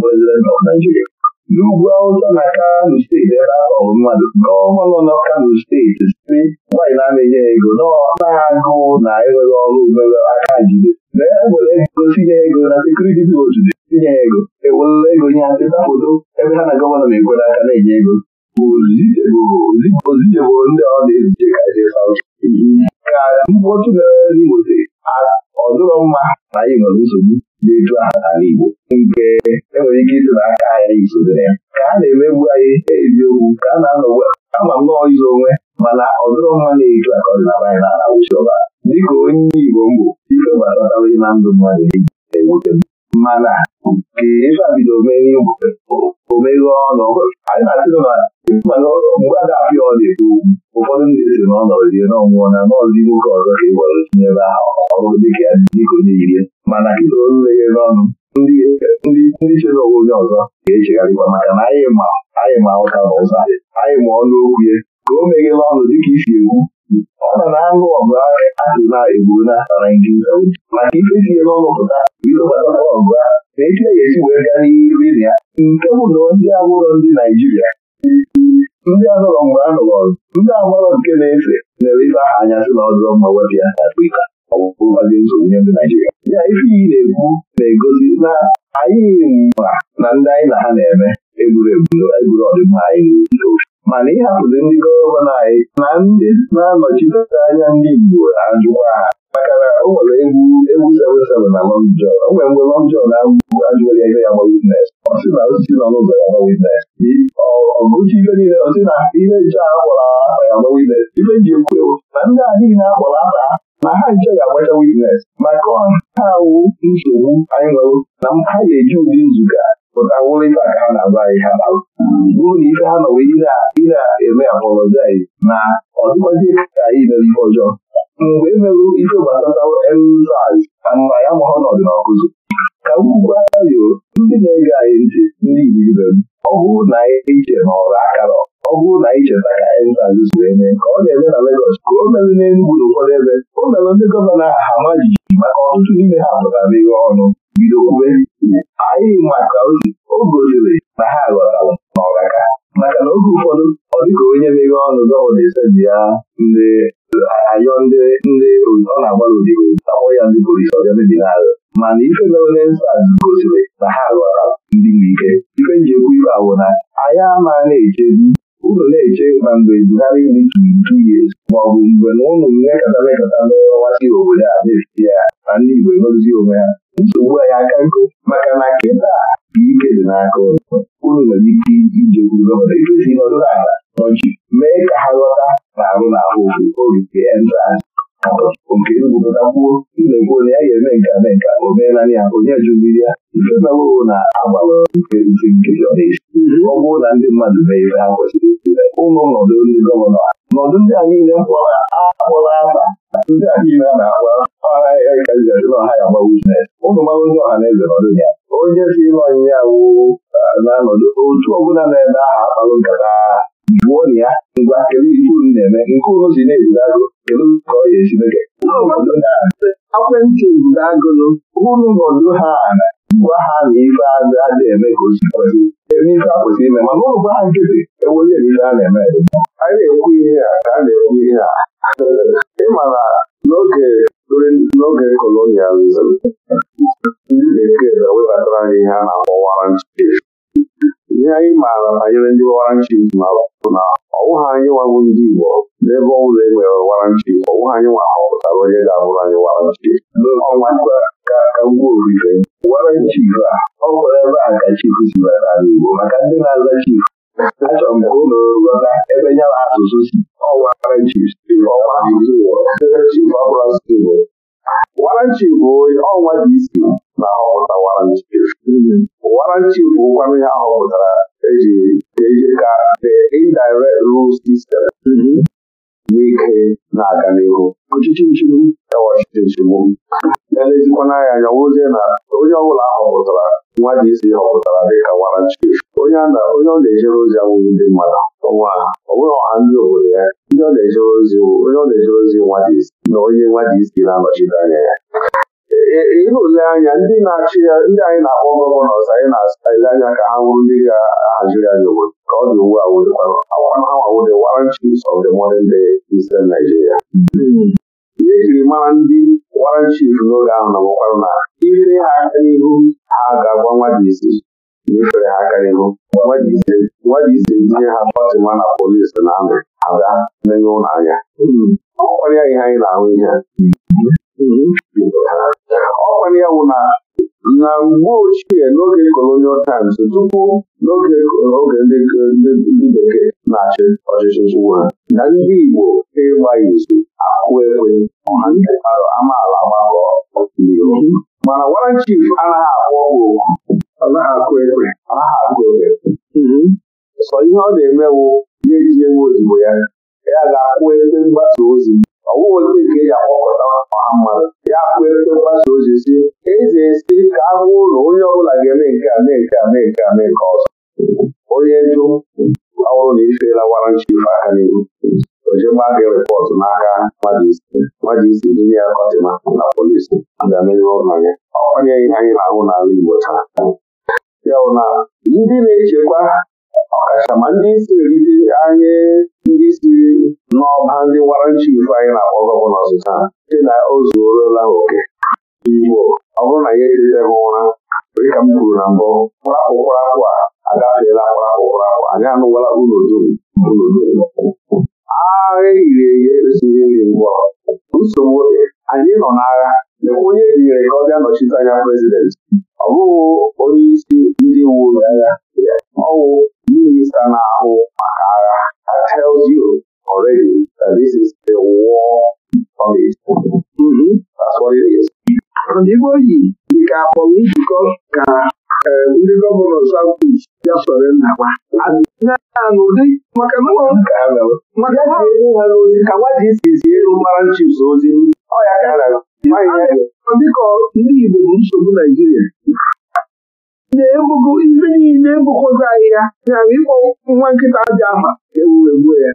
Naijiria n'ugwu awụsa na kano steeti ebe akpọbụ mmadụ gọvanọ nọ kano steeti si nwanyị na-amịnye ego na-agụ na enweghị ọrụ mere aka jide na e ego tinye ego na sekuriti dị otu dị tinye ego ewerela ego nye atịta foto e ebe ha na gọvanọ na-ekwere aka na-enye ego bụ ozijebụro ndị ọ na-ezije ka mkpọtụ mere n'Imo ọ dụrọ mma na anyị nwere nsogbu na aha n'ala nke enwere ike isi na aka anyị ya ka a na-emegbu anyị eziokwu ka a na-anọgbu ama m nọọ onwe mana ọ dịrọ mma na-eju aka ọdịnala anyị n'ala dịka onye Igbo mbụ ife gbatatabụghị na ndụ mmadụ ewute mana ka ife a bido omeghe omeghe ọnụ mgbe a ọ na-ekwu ụfọdụ ndị si na ọ nọrọ na ọnwụọ na n'ọdị nwoke ọzọ ka ị gwara tinye ebe ahụ ọrụ dị ka dịka onye irie mana kịta oleghe n'ọnụ ndị chere onwe onye ọzọ ga-echegharịkwa maka na anyị ma anyị ma ụka na ụza anyị ma ọnụ okwu ya ka o meghela n'ọnụ dịka isi ekwu ọ na na anụ ọgụ asịrị na-egbu na Naijiria maka ife e sie n'ọnụ pụta bido gbata ọgụ ahụ na echi ya e esi wee gaa n'iru ya nke bụ na ndị abụrọ ndị Naijiria ndị ahụrụ mgbe a hụrụ ndị ahụrụ nke na-efe lere ife aha anya sị na ọ dụrọ mma wepụ ya na Afrịka ọ nsogbu nye ndị Naijiria ya ife iyi na-ekwu na-egosi na anyị ma na ndị anyị na ha na-eme egwuregwu egburu ọdịmma anyị n'ofe mana ịhapụzi ndị gọvanọ anyị na ndị na-anọchite anya ndị Igbo ajụkwa maka na o nwere egwu egwu na Long John o nwere mgbe Long na ajụghị ya gba ọ sị na osisi nọ n'ụzọ ya ọgụchi ife niile ọ na ihe nche a kpọrọ ya gba ife ji ekwu ewu na ndị a niile a kpọrọ na ha nche ga-agbacha maka ha awụ nsogbu anyị nwere na ha ga-eji ụdị nzukọ pụta wụrịta ka ha na anyị ha na na ife ha ị na ka anyị mere ọjọọ mgbe emerụ ife gbasatawo elzaz na nna ya ma ọnọdụ n'ọkụzụ ka ugwu ario ndị na-ege anyị ntị ndị Igbo ọ bụrụ na e iche na ọrụ akara ọ bụrụ na ije ka elzaz so eme ka ọ na eme na Legọs ka o mere n'Enugwu n'ụfọdụ ebe o mere ndị gọvanọ aha maka ọtụtụ n'ime ha ọnụ bido kwube anyị maka ozi o gosiri na ha ghọtara n'ọraka maka na oge ụfọdụ ọ dịka onye meghe ọnụ gọvanọ ya ndị ayọ ndị ndị ọ na-agbara odibo akpọ ya ndị polisi ndị na mana ife mere gosiri na ha ghọta ndị n'ike ife njikwa ife awụ na anya ama na-echedi unu na-eche ma mgbe Buhari ndị. ka ya maọbụ mgbe na eche mmekọta n'ọwasị obodo a na-efite ya na ndị Igbo onwe ha nsogbu anyị aka nkụ maka na ike dị n'aka ụlọ nwere ike si n'ọdụ ala nọchi mee ka ha na-arụ n'ahụ orite nke igwupụtakwuo ilekwu ya eme nka eme nke o meela ya onye jụdiri ya ife na agbara nke isi ọ bụrụ na ndị mmadụ ha kwesịrị ụlọ nọdụ ndị gọvanọ nọdụ ndị a niile mkpọrọ akpọrọ ndị na-akpa ọha na ya gbawa ụmụ ọha ya onye si ịlụ ọnyịnya awụ na-anọdụ otu ọbụla na aha akpalụ jụọ na ya ngwa kedu ife unu na-eme nke unu si na-eburu agụ kedu ka ọ ga-esi mege ekwentị eburu agụnụ unu nọdụ ha na gwa ha na ife azụ a eme ka o si kwesị eme ife a kwesịrị ime mana ụlọ gwa ha nkịtị ewere ya ife a na-eme a na-ekwu ihe a ka a na-ekwu ihe a Ị na n'oge kolonializm ndị bekee na-ewebatara anyị ihe a na-akpọ warrant ihe anyị maara banyere ndị waranchi mara bụ na ọwụha anyị nwago ndị Igbo n'ebe ọ bụla e nwere waranchi ọwụha anyị nwa họpụtara onye ga-abụrụ anyị waranchi waranchi ọ gwara ebe a ka chifu si bịa n'ala Igbo maka ndị na-aza chifu achọrọ m ka ụlọ ghọta ebe ya na asụsụ si ọwaranchi ọwa Igbo waranchi bụ ọnwa dị isi na ahọpụta waranchi waranchi bụ ụkwanụ ya họpụtara eji eji ka the indirect rule system n'ike na-aga n'ihu ọchịchị nchigbu ya e ọchịchị nchigbu elezikwana anya anya wụzie na onye ọbụla ahọpụtara nwa ji isi họpụtara dịka waranchi onye ọ na-ejere ozi awụghị ndị mmadụ ọnwa ọ bụghị ọha ndị obodo ya ndị ọ na-ejere ozi onye ọ na-ejere ozi nwa ji isi na onye nwa ji isi na-anọchite anya ya ihe ole anya ndị na-achị ya ndị anyị na-akpọ gọvanọs anyị na-asa ile anya ka ha nwụrụ ndị ga-ahaziri anyị obodo ka ọ dị ugbu a wee awawawode Warrant Chiefs of the modern day Eastern Nigeria ihe ejiri mara ndị Warrant n'oge ahụ na ọgwakwarụ na ifere ha aka n'ihu ha ga-agwa nwa dị isi n'ifere ha aka n'ihu nwa isi tinye ha Fatima na polisi na amị ha bịa menye ụlọ anya ọ kwarịa ihe anyị na-ahụ ihe ọ nwere ya bụ na na mgbe ochie n'oge colonial times tupu n'oge oge ndị bekee na-achị ọchịchị chịwa na ndị Igbo ịgba izu akụ ekwe amaala gbakọ mana Warren Chief anaghị akwụ ọgwụ okwu. anaghị akụ ekwe sọ ihe ọ na-emewo ya eji ozugbo ya ya ga akwụ ekwe mgbasa ozi ọwụweta nke ya akpọpụta ọha mmadụ ya kpụ ego mgbasa ozi si eze esi ka a ụlọ onye ọbụla ga-eme nke a mee nke a mee nke a mee nke ọzọ onye jụ ọhụrụ na ifeela wara nchi ife aka n'ihu ojegba gị rịpọtụ n'aka mmadụ isi dịnye ya kọtịma na polisi ya onye anyị na-ahụ n'ala Igbo taa ya bụ na ndị na-echekwa ọkachamara ndị isi erite anyị ndị si n'ọba ndị wara nchi anyị na-akpọ gọvanọ ọzụza dị na o zuorola oke igbo ọ bụrụ na ya etetebe ụra dịka m kwuru na mbụ kpụrapụkpụrapụ a agafeela kpụrapụkpụrapụ anyị anụwala unu dum agha ehiri ehi ekwesịghị nri mgbọrọ nsogbu anyị nọ n'agha onye tinyere ka ọ bịa nọchite anya prezidenti ọ bụghị onye isi ndị uwe ojii ọwụ minista na-ahụ maka agha you already that this is a war mm-hmm. That's what it is. yi njikọ ka e, ndị gọvanọ South East ya soro nnakwa n'ụdị maka ha ewu ka nwa ji isi elu mara nchịs ozi ọ dịka ndị Igbo bụ nsogbu Naijiria na-ebugo ihe niile bụkwozi anyị ya ya ịkpọ nwa nkịta dị afa ewuru ewu ya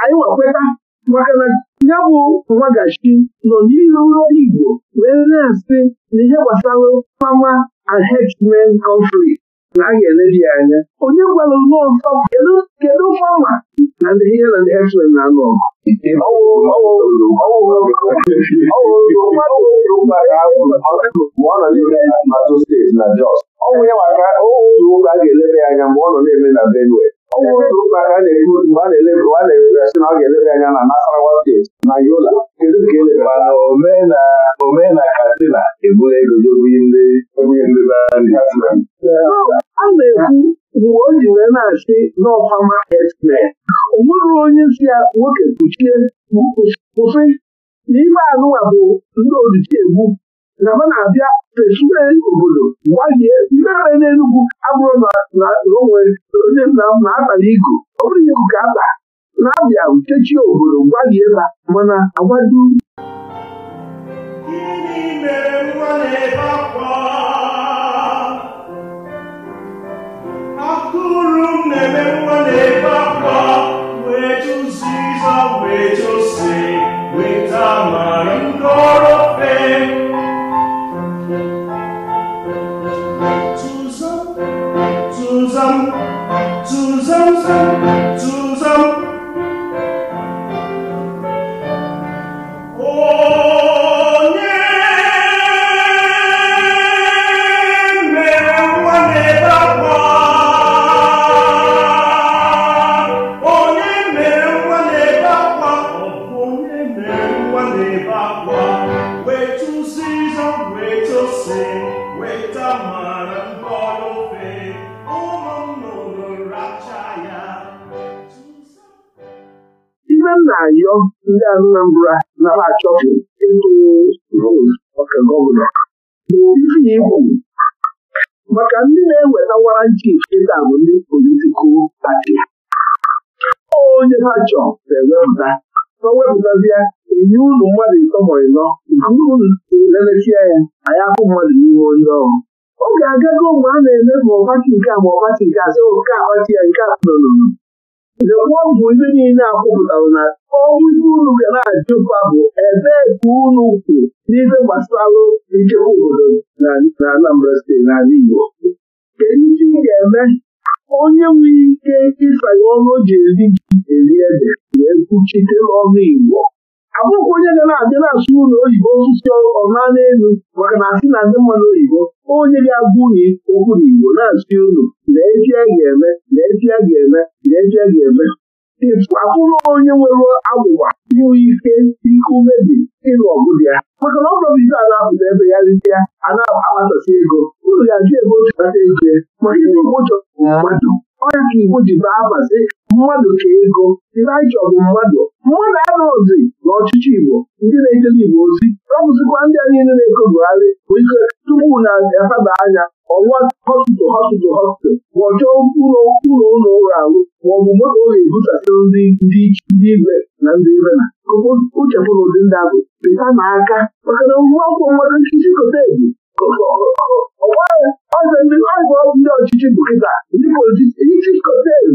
anyị wekweta maka na ya bụ nwagachi nọ n'iru ndị Igbo wee na-asị na ihe gbasara mama and herdsmen conflict na a ga-elebi anya onye gwara nwa ọzọ kedu mgbanwa na ndị ihe na ndị eslen na-anụ ọgụ ọnwụ ya maka otu ụka a ga-elebe ya anya mgbe ọ nọ na-eme na Benue ọnwụ ụka ka a na na-ebu mgbe a na-eleba a na-eleba ya sị na ọ ga-eleba anya na Nasarawa steeti na Yola kedu e ka eleba mana omena Katsina ebu ego jebughị ndị e ndị a na-ekwu mgbe o ji wee na-asị n'ọfama esmen o nwere onye si ya nwoke kpuchie kwụsị n'ime anụwa bụ ndị ojici egbu na ha na-abịa techiwe obodo gbalie ndị agha n'Enugwu abụrụ na onwe onye nna m na-atala igu ọ bụrụ igu ka ata na-abịa uchechi obodo gbalie ha mana agwado akụrụ wee wee ndị ọrụ ndị Anambra nara achọpụ ịtụ rolu ọka gọvanọ n'obibi igbo maka ndị na-eweta waranti ịta bụ ndị politikal pati onye ha chọọ na-ewepụta ọ wepụtazie enye ụlọ mmadụ ịtọ ma ịnọ nke unu lelesia ya anyị afụ mmadụ n'ime onye ọrụ ọ ga-agago mgbe a na-eme ma ọpati nke a ma ọpati nke a sị nke a kpati ya nke a nọ lekwa ọgwụ ndị niile akwụpụtara na ọnwụzi unu ga na-ajụkwa bụ ebee ka unu kwu n'ihe gbasara nchekwa obodo na Anambra steeti n'ala Igbo kedu ihe ị ga-eme onye nwere ike ịsanye ọrụ o ji eri eri ede wee kwuchite ọnụ Igbo abụghị onye ga na-abịa na-asụ ụlọ oyibo osisi ọma n'elu maka na asị na ndị mmadụ oyibo onye ga-abụghị okwu n'igbo na-asị unu na-eji a ga-eme na a ga-eme na ga-eme abụrụ onye nwere agwụgwa inwe ike ike ume ịlụ ọgụ dị ya maka na ọ bụrụ a na-apụta ebe ya rite ya a na-akpatasị ego ụlọ ga-ajụ ebe otu kpata ego maka ịdị ụgbọchọ mmadụ ọya Igbo ji baa abazi mmadụ ka ego dịrịaịchọ bụ mmadụ mmadụ ana ozi na ọchịchị Igbo ndị na-ekele Igbo ozi ọbụzikwa ndị a niile na ekogharị bụ ike tupu na efeba anya ọwa hospital hospital hospital ma ọ chọọ ụlọ ụlọ ụlọ ụlọ ahụ ma ọ bụ moto ọ ga-ebusasịrị ndị ndị ibe na ndị ibe na uche bụrụ ụdị ndị ahụ pịta aka maka na ngwa akwụkwọ nwere nkịtị kote ebu ọzọ ndị ọgwụ ndị ọchịchị bụ kịta ndị politiks kotel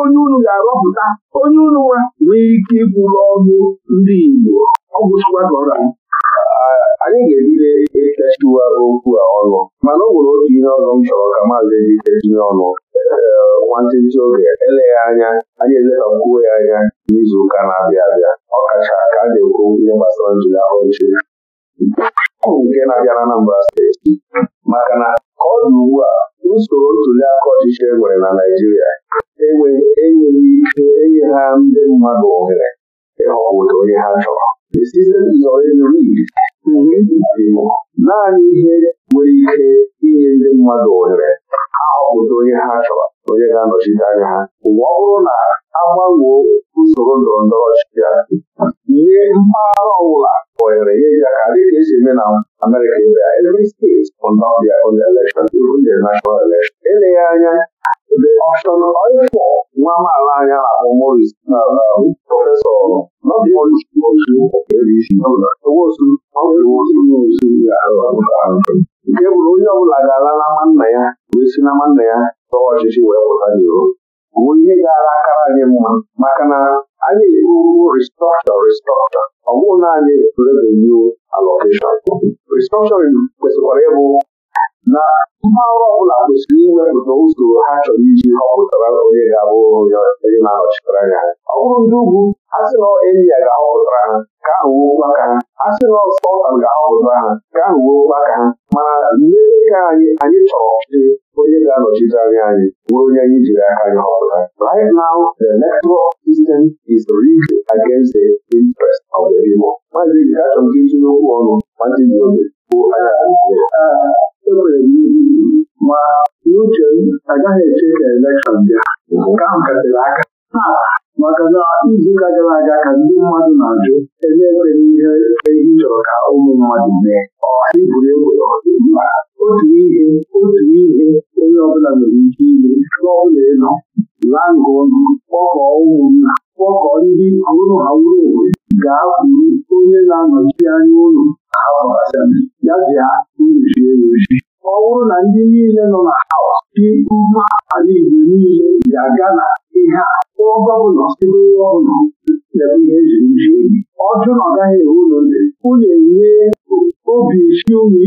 onye unu ga-arọpụta onye unu nwa nwee ike iburu ndị Igbo anyị ga-ebido ekechiwa okwu a ọnụ mana ọ nwere otu ihe ọzọ m chọrọ ka maazị ejike ọnụ nwantịntị oge eleghị anya anyị eletakwuo ya anya n'izu ụka na-abịa abịa a ga-ekwu ihe gbasara bụ nke na-abịa n'Anambra steeti maka na ọ dị ugbu a usoro ntuli aka ọchịchị e nwere na Naịjirịa enweghị ike enye ha ndị mmadụ ohere ịhọpụta onye ha chọrọ the system naanị ihe nwere ike inye ndị mmadụ ohere ha onye ha chọrọ onye ga-anọchite anya ha Ụwa ọ bụrụ na a usoro ndọrọ ndọrọ ọchịchị nye mpaghara ọbụla kpọnyere ihe ihe aka esi eme na Amerịka ibe every state will not be ọbịa the election even the national na eleghị anya the option nwa maala anya na-akpọ Morris na prọfesọ e e e nke bụrụ onye ọbụla ga-ala na nwanna ya wee si na nwanna ya tọwa ọchịchị wee pụta bụ ihe gara akara anyị mma maka na anyị ebuwo restrọkchọ restrọkchọ ọ bụghị naanị revenue allocation restrọkchọrin kwesịkwara ịbụ na mba ọrụ ọbụla kwesịrị iwepụta usoro ha chọrọ iji họpụtara onye ga-abụ onye na-anọchitere anya ọ bụrụ ndị ugwu a sị na India ga-ahọpụtara ha ka ahụ wuo maka ha a sị na Scotland ga-ahọpụtara ha ka ahụ wuo maka ha mana ndị ka anyị anyị chọrọ ọchịchị onye ga-anọchite anya anyị nwee onye anyị jiri aka anyị họpụta right now the network system is rigged against the interest of the people maazị Gachọ nke tinye okwu ọnụ maazị Nyobe bụ anya enwere m ma n'uche m agaghị eche ka elekshọn bịa aka maka na izu ụka gara aga ka ndị mmadụ na-ajụ ebe n'ihe ehi chọrọ ka ụmụ mmadụ mee ọhaiburu egbe otu ihe otu ihe onye ọbụla nwere ike ime chụọ ịnọ elu laa ngụ kpọkọọ ụmụnna ndị ọhụrụ ha wuru owe ga kwuru onye na-anọchi anya ụlọ ya bịa ruzie ruzi ọ bụrụ na ndị niile nọ na haus dị mma ala Igbo niile ga-aga na ọba ọbụla ebe onye ọbụla lebe ihe eji ji ọ jụ na ọ gaghị enwe ụlọ ndị unu obi isi unu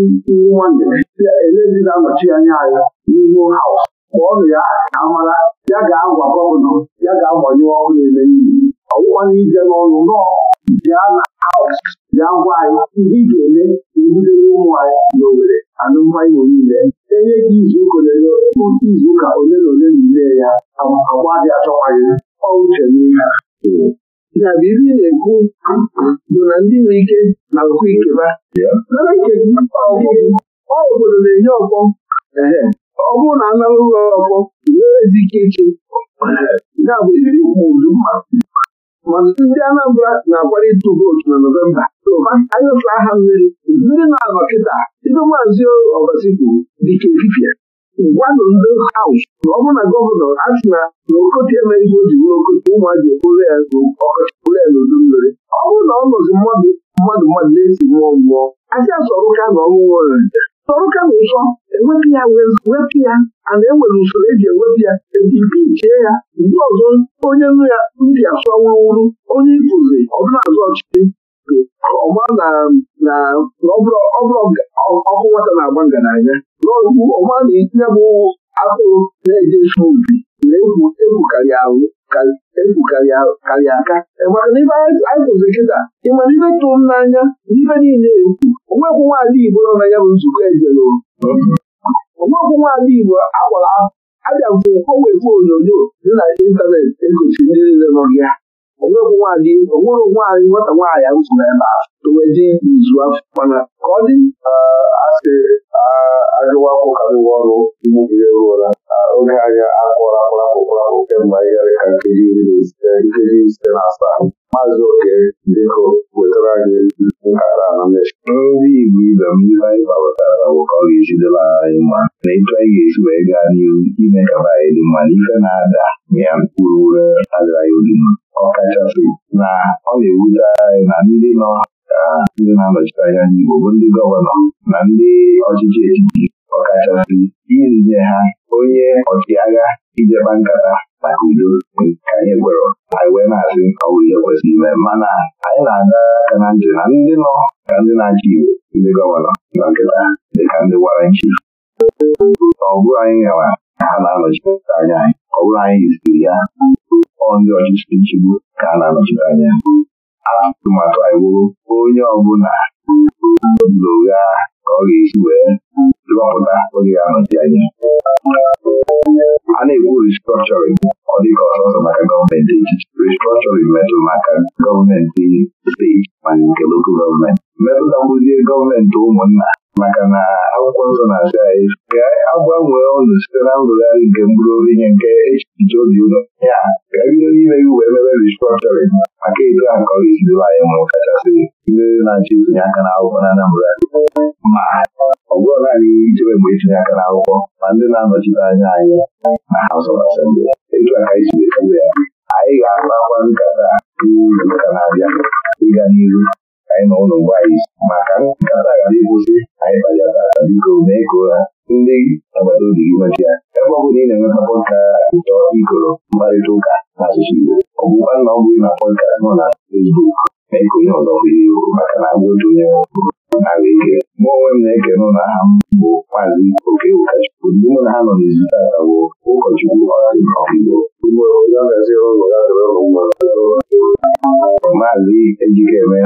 nwa elezila anọchi anya ya n'ihu ọ nụ ya na amara ya ga-agwa gọvanọ ya ga-agbanye ọrụ ele niile ọwụwa n'ije n'ọrụ nọọ bịa na haus bịa gwa anyị ihe ị ga-eme ebudere ụmụ anyị na Owerri alụmdị niile enye gị izuụka ole na ole na ile ya agba dị achọkwaghị ọ uche n'ihe ya bụ ihe na-ekwu bụ na ndị nwe ike na nkụ ikeba obodo na-enye ọkpọ ọ bụrụ na anara ụlọ ọkpọ ezi ike iche ya bụ mma. mana ndị Anambra na akwara ịtụ vootu na Nọvemba anyị anyụsa aha mmiri ndị na-anọ kịta ndị maazị Obasi kwuru dịka efifie gwanụ ndị haus na ọ bụrụ na gọvanọ asị na na emeghị o ji bụrụ okotie ụmụazị ekporo ya ọkọchị ya n'udu mmiri ọ bụrụ na ọ nọzi mmadụ mmadụ mmadụ na-esi mmụọ mmụọ asị asọrụka na ọṅụṅụ orere sọrụka na ụsọ ewepụ ya wepụ ya a na-enwere usoro eji ewepụ ya ejipi chee ya ndị ọzọ onye nụ ya ndị asụ ọnwụwụrụ onye ịpụzi ọbụla azụ ọchịchị ọma na na ọkụ nwata na-agba ngaranya n'okwu ọma na itinye bụ atụrụ na-ejesu ubi na-egwu egwu karịa aka maka e na ibe anyị tụzi kịta ịma na ibe tụrụ m n'anya na niile egwu onwekwu nwaada Igbo nọ na ya bụ nzukọ ejere onwekwu nwaada Igbo agbara abịa mfụ ogbe onyonyo dị na ịntanetị egosi ndị niile nọ ya onwere nwaanyị nwata nwaanyị m so n'ebe a tụwedi izu afọ mana ka ọ dị asị agụwa akwụkarịwa ọrụ mgbe ruola oge anyị akwụrụ akpụrapụrapụ kemgbe anyị ka nkeji iri na e, nkeji site na asaa maazị oke biko wetara anyị nkata na ndị Igbo ibe m ndị anyị gbawetara bụ ọ ga-ejidela anyị mma na etu anyị ga-esi wee gaa ime ka anyị dị mma na ife na-ada ya mkpụrụ ure ọkachasị na ọ na-ewute anyị na ndị nọ na-anọchite anya ndị Igbo bụ ndị gọvanọ na ndị ọchịchị etiti ọkachasị irije ha onye ọchịagha ijekpa nkata maka udo ka anyị gwere anyị wee na-asị ọwụ ihe kwesịrị ime mana anyị na-aga aka na ntị na ndị nọ ka ndị na-achị Igbo ndị gọvanọ nọ nkịta dịka ndị wara nchi ọ bụrụ anyị nyewa ha na-anọchite anya anyị ọ bụrụ anyị ziri ya ọ ndị ọchịchị nchigbu ka a na-anọchite anya atụmatụ anyị wụrụ onye ọbụla n'ụgha ka ọ ga-esi wee ọpụta oge ahụzi anya a na-ekwu restructuring ọ dịka ọsọsọ maka gọọmenti etiti restructuring metụrụ maka gọọmenti steeti ma nke lokal gọọmenti metụtakwuzie gọọmenti ụmụnna maka na akwụkwọ nsọ na-asị anyị ka agbanwee ọnụ site na ngụgharị nke mkpụrụ obi nye nke echiche obi ụlọ ya ka ebido n'ime iwu wee mebe restructuring maka etu aka ka ọ ga-esi debe anyị mụrụ kachasị ihe na-achọ itinye aka na akwụkwọ na Anambra ma ọ bụrụ naanị ijebe mgbe itinye aka n'akwụkwọ ma ndị na-anọchite anya anyị na House of Assembly aka isi wee ya anyị ga-akpakwa nkata uru na-abịa ịga n'ihu anyị na ụlọ anyị maka nkata ghara ịkwụsị anyị bajatara biko mee ka ụra ndị agbata obi gị ya ebe ọ bụla ị na-enweta pọdka ụtọ ikoro mkparịta ụka asụsụ Igbo ọ bụkwa na ọ bụghị na pọdka nọ na Facebook mee ka onye ọzọ maka na agwa otu nara ike mụ onwe m na-ekene ụlọ aha m bụ maazị Okewukachukwu ndị mụ na ha nọ n'izu tata bụ ụkọchukwu maazị Ejikeme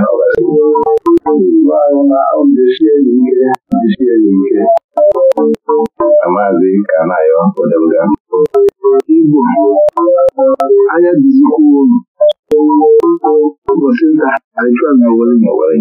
na maazị Kanayo Odemga anya dịzikwuo ụbọchị anyị achụa na Owerri na Owerri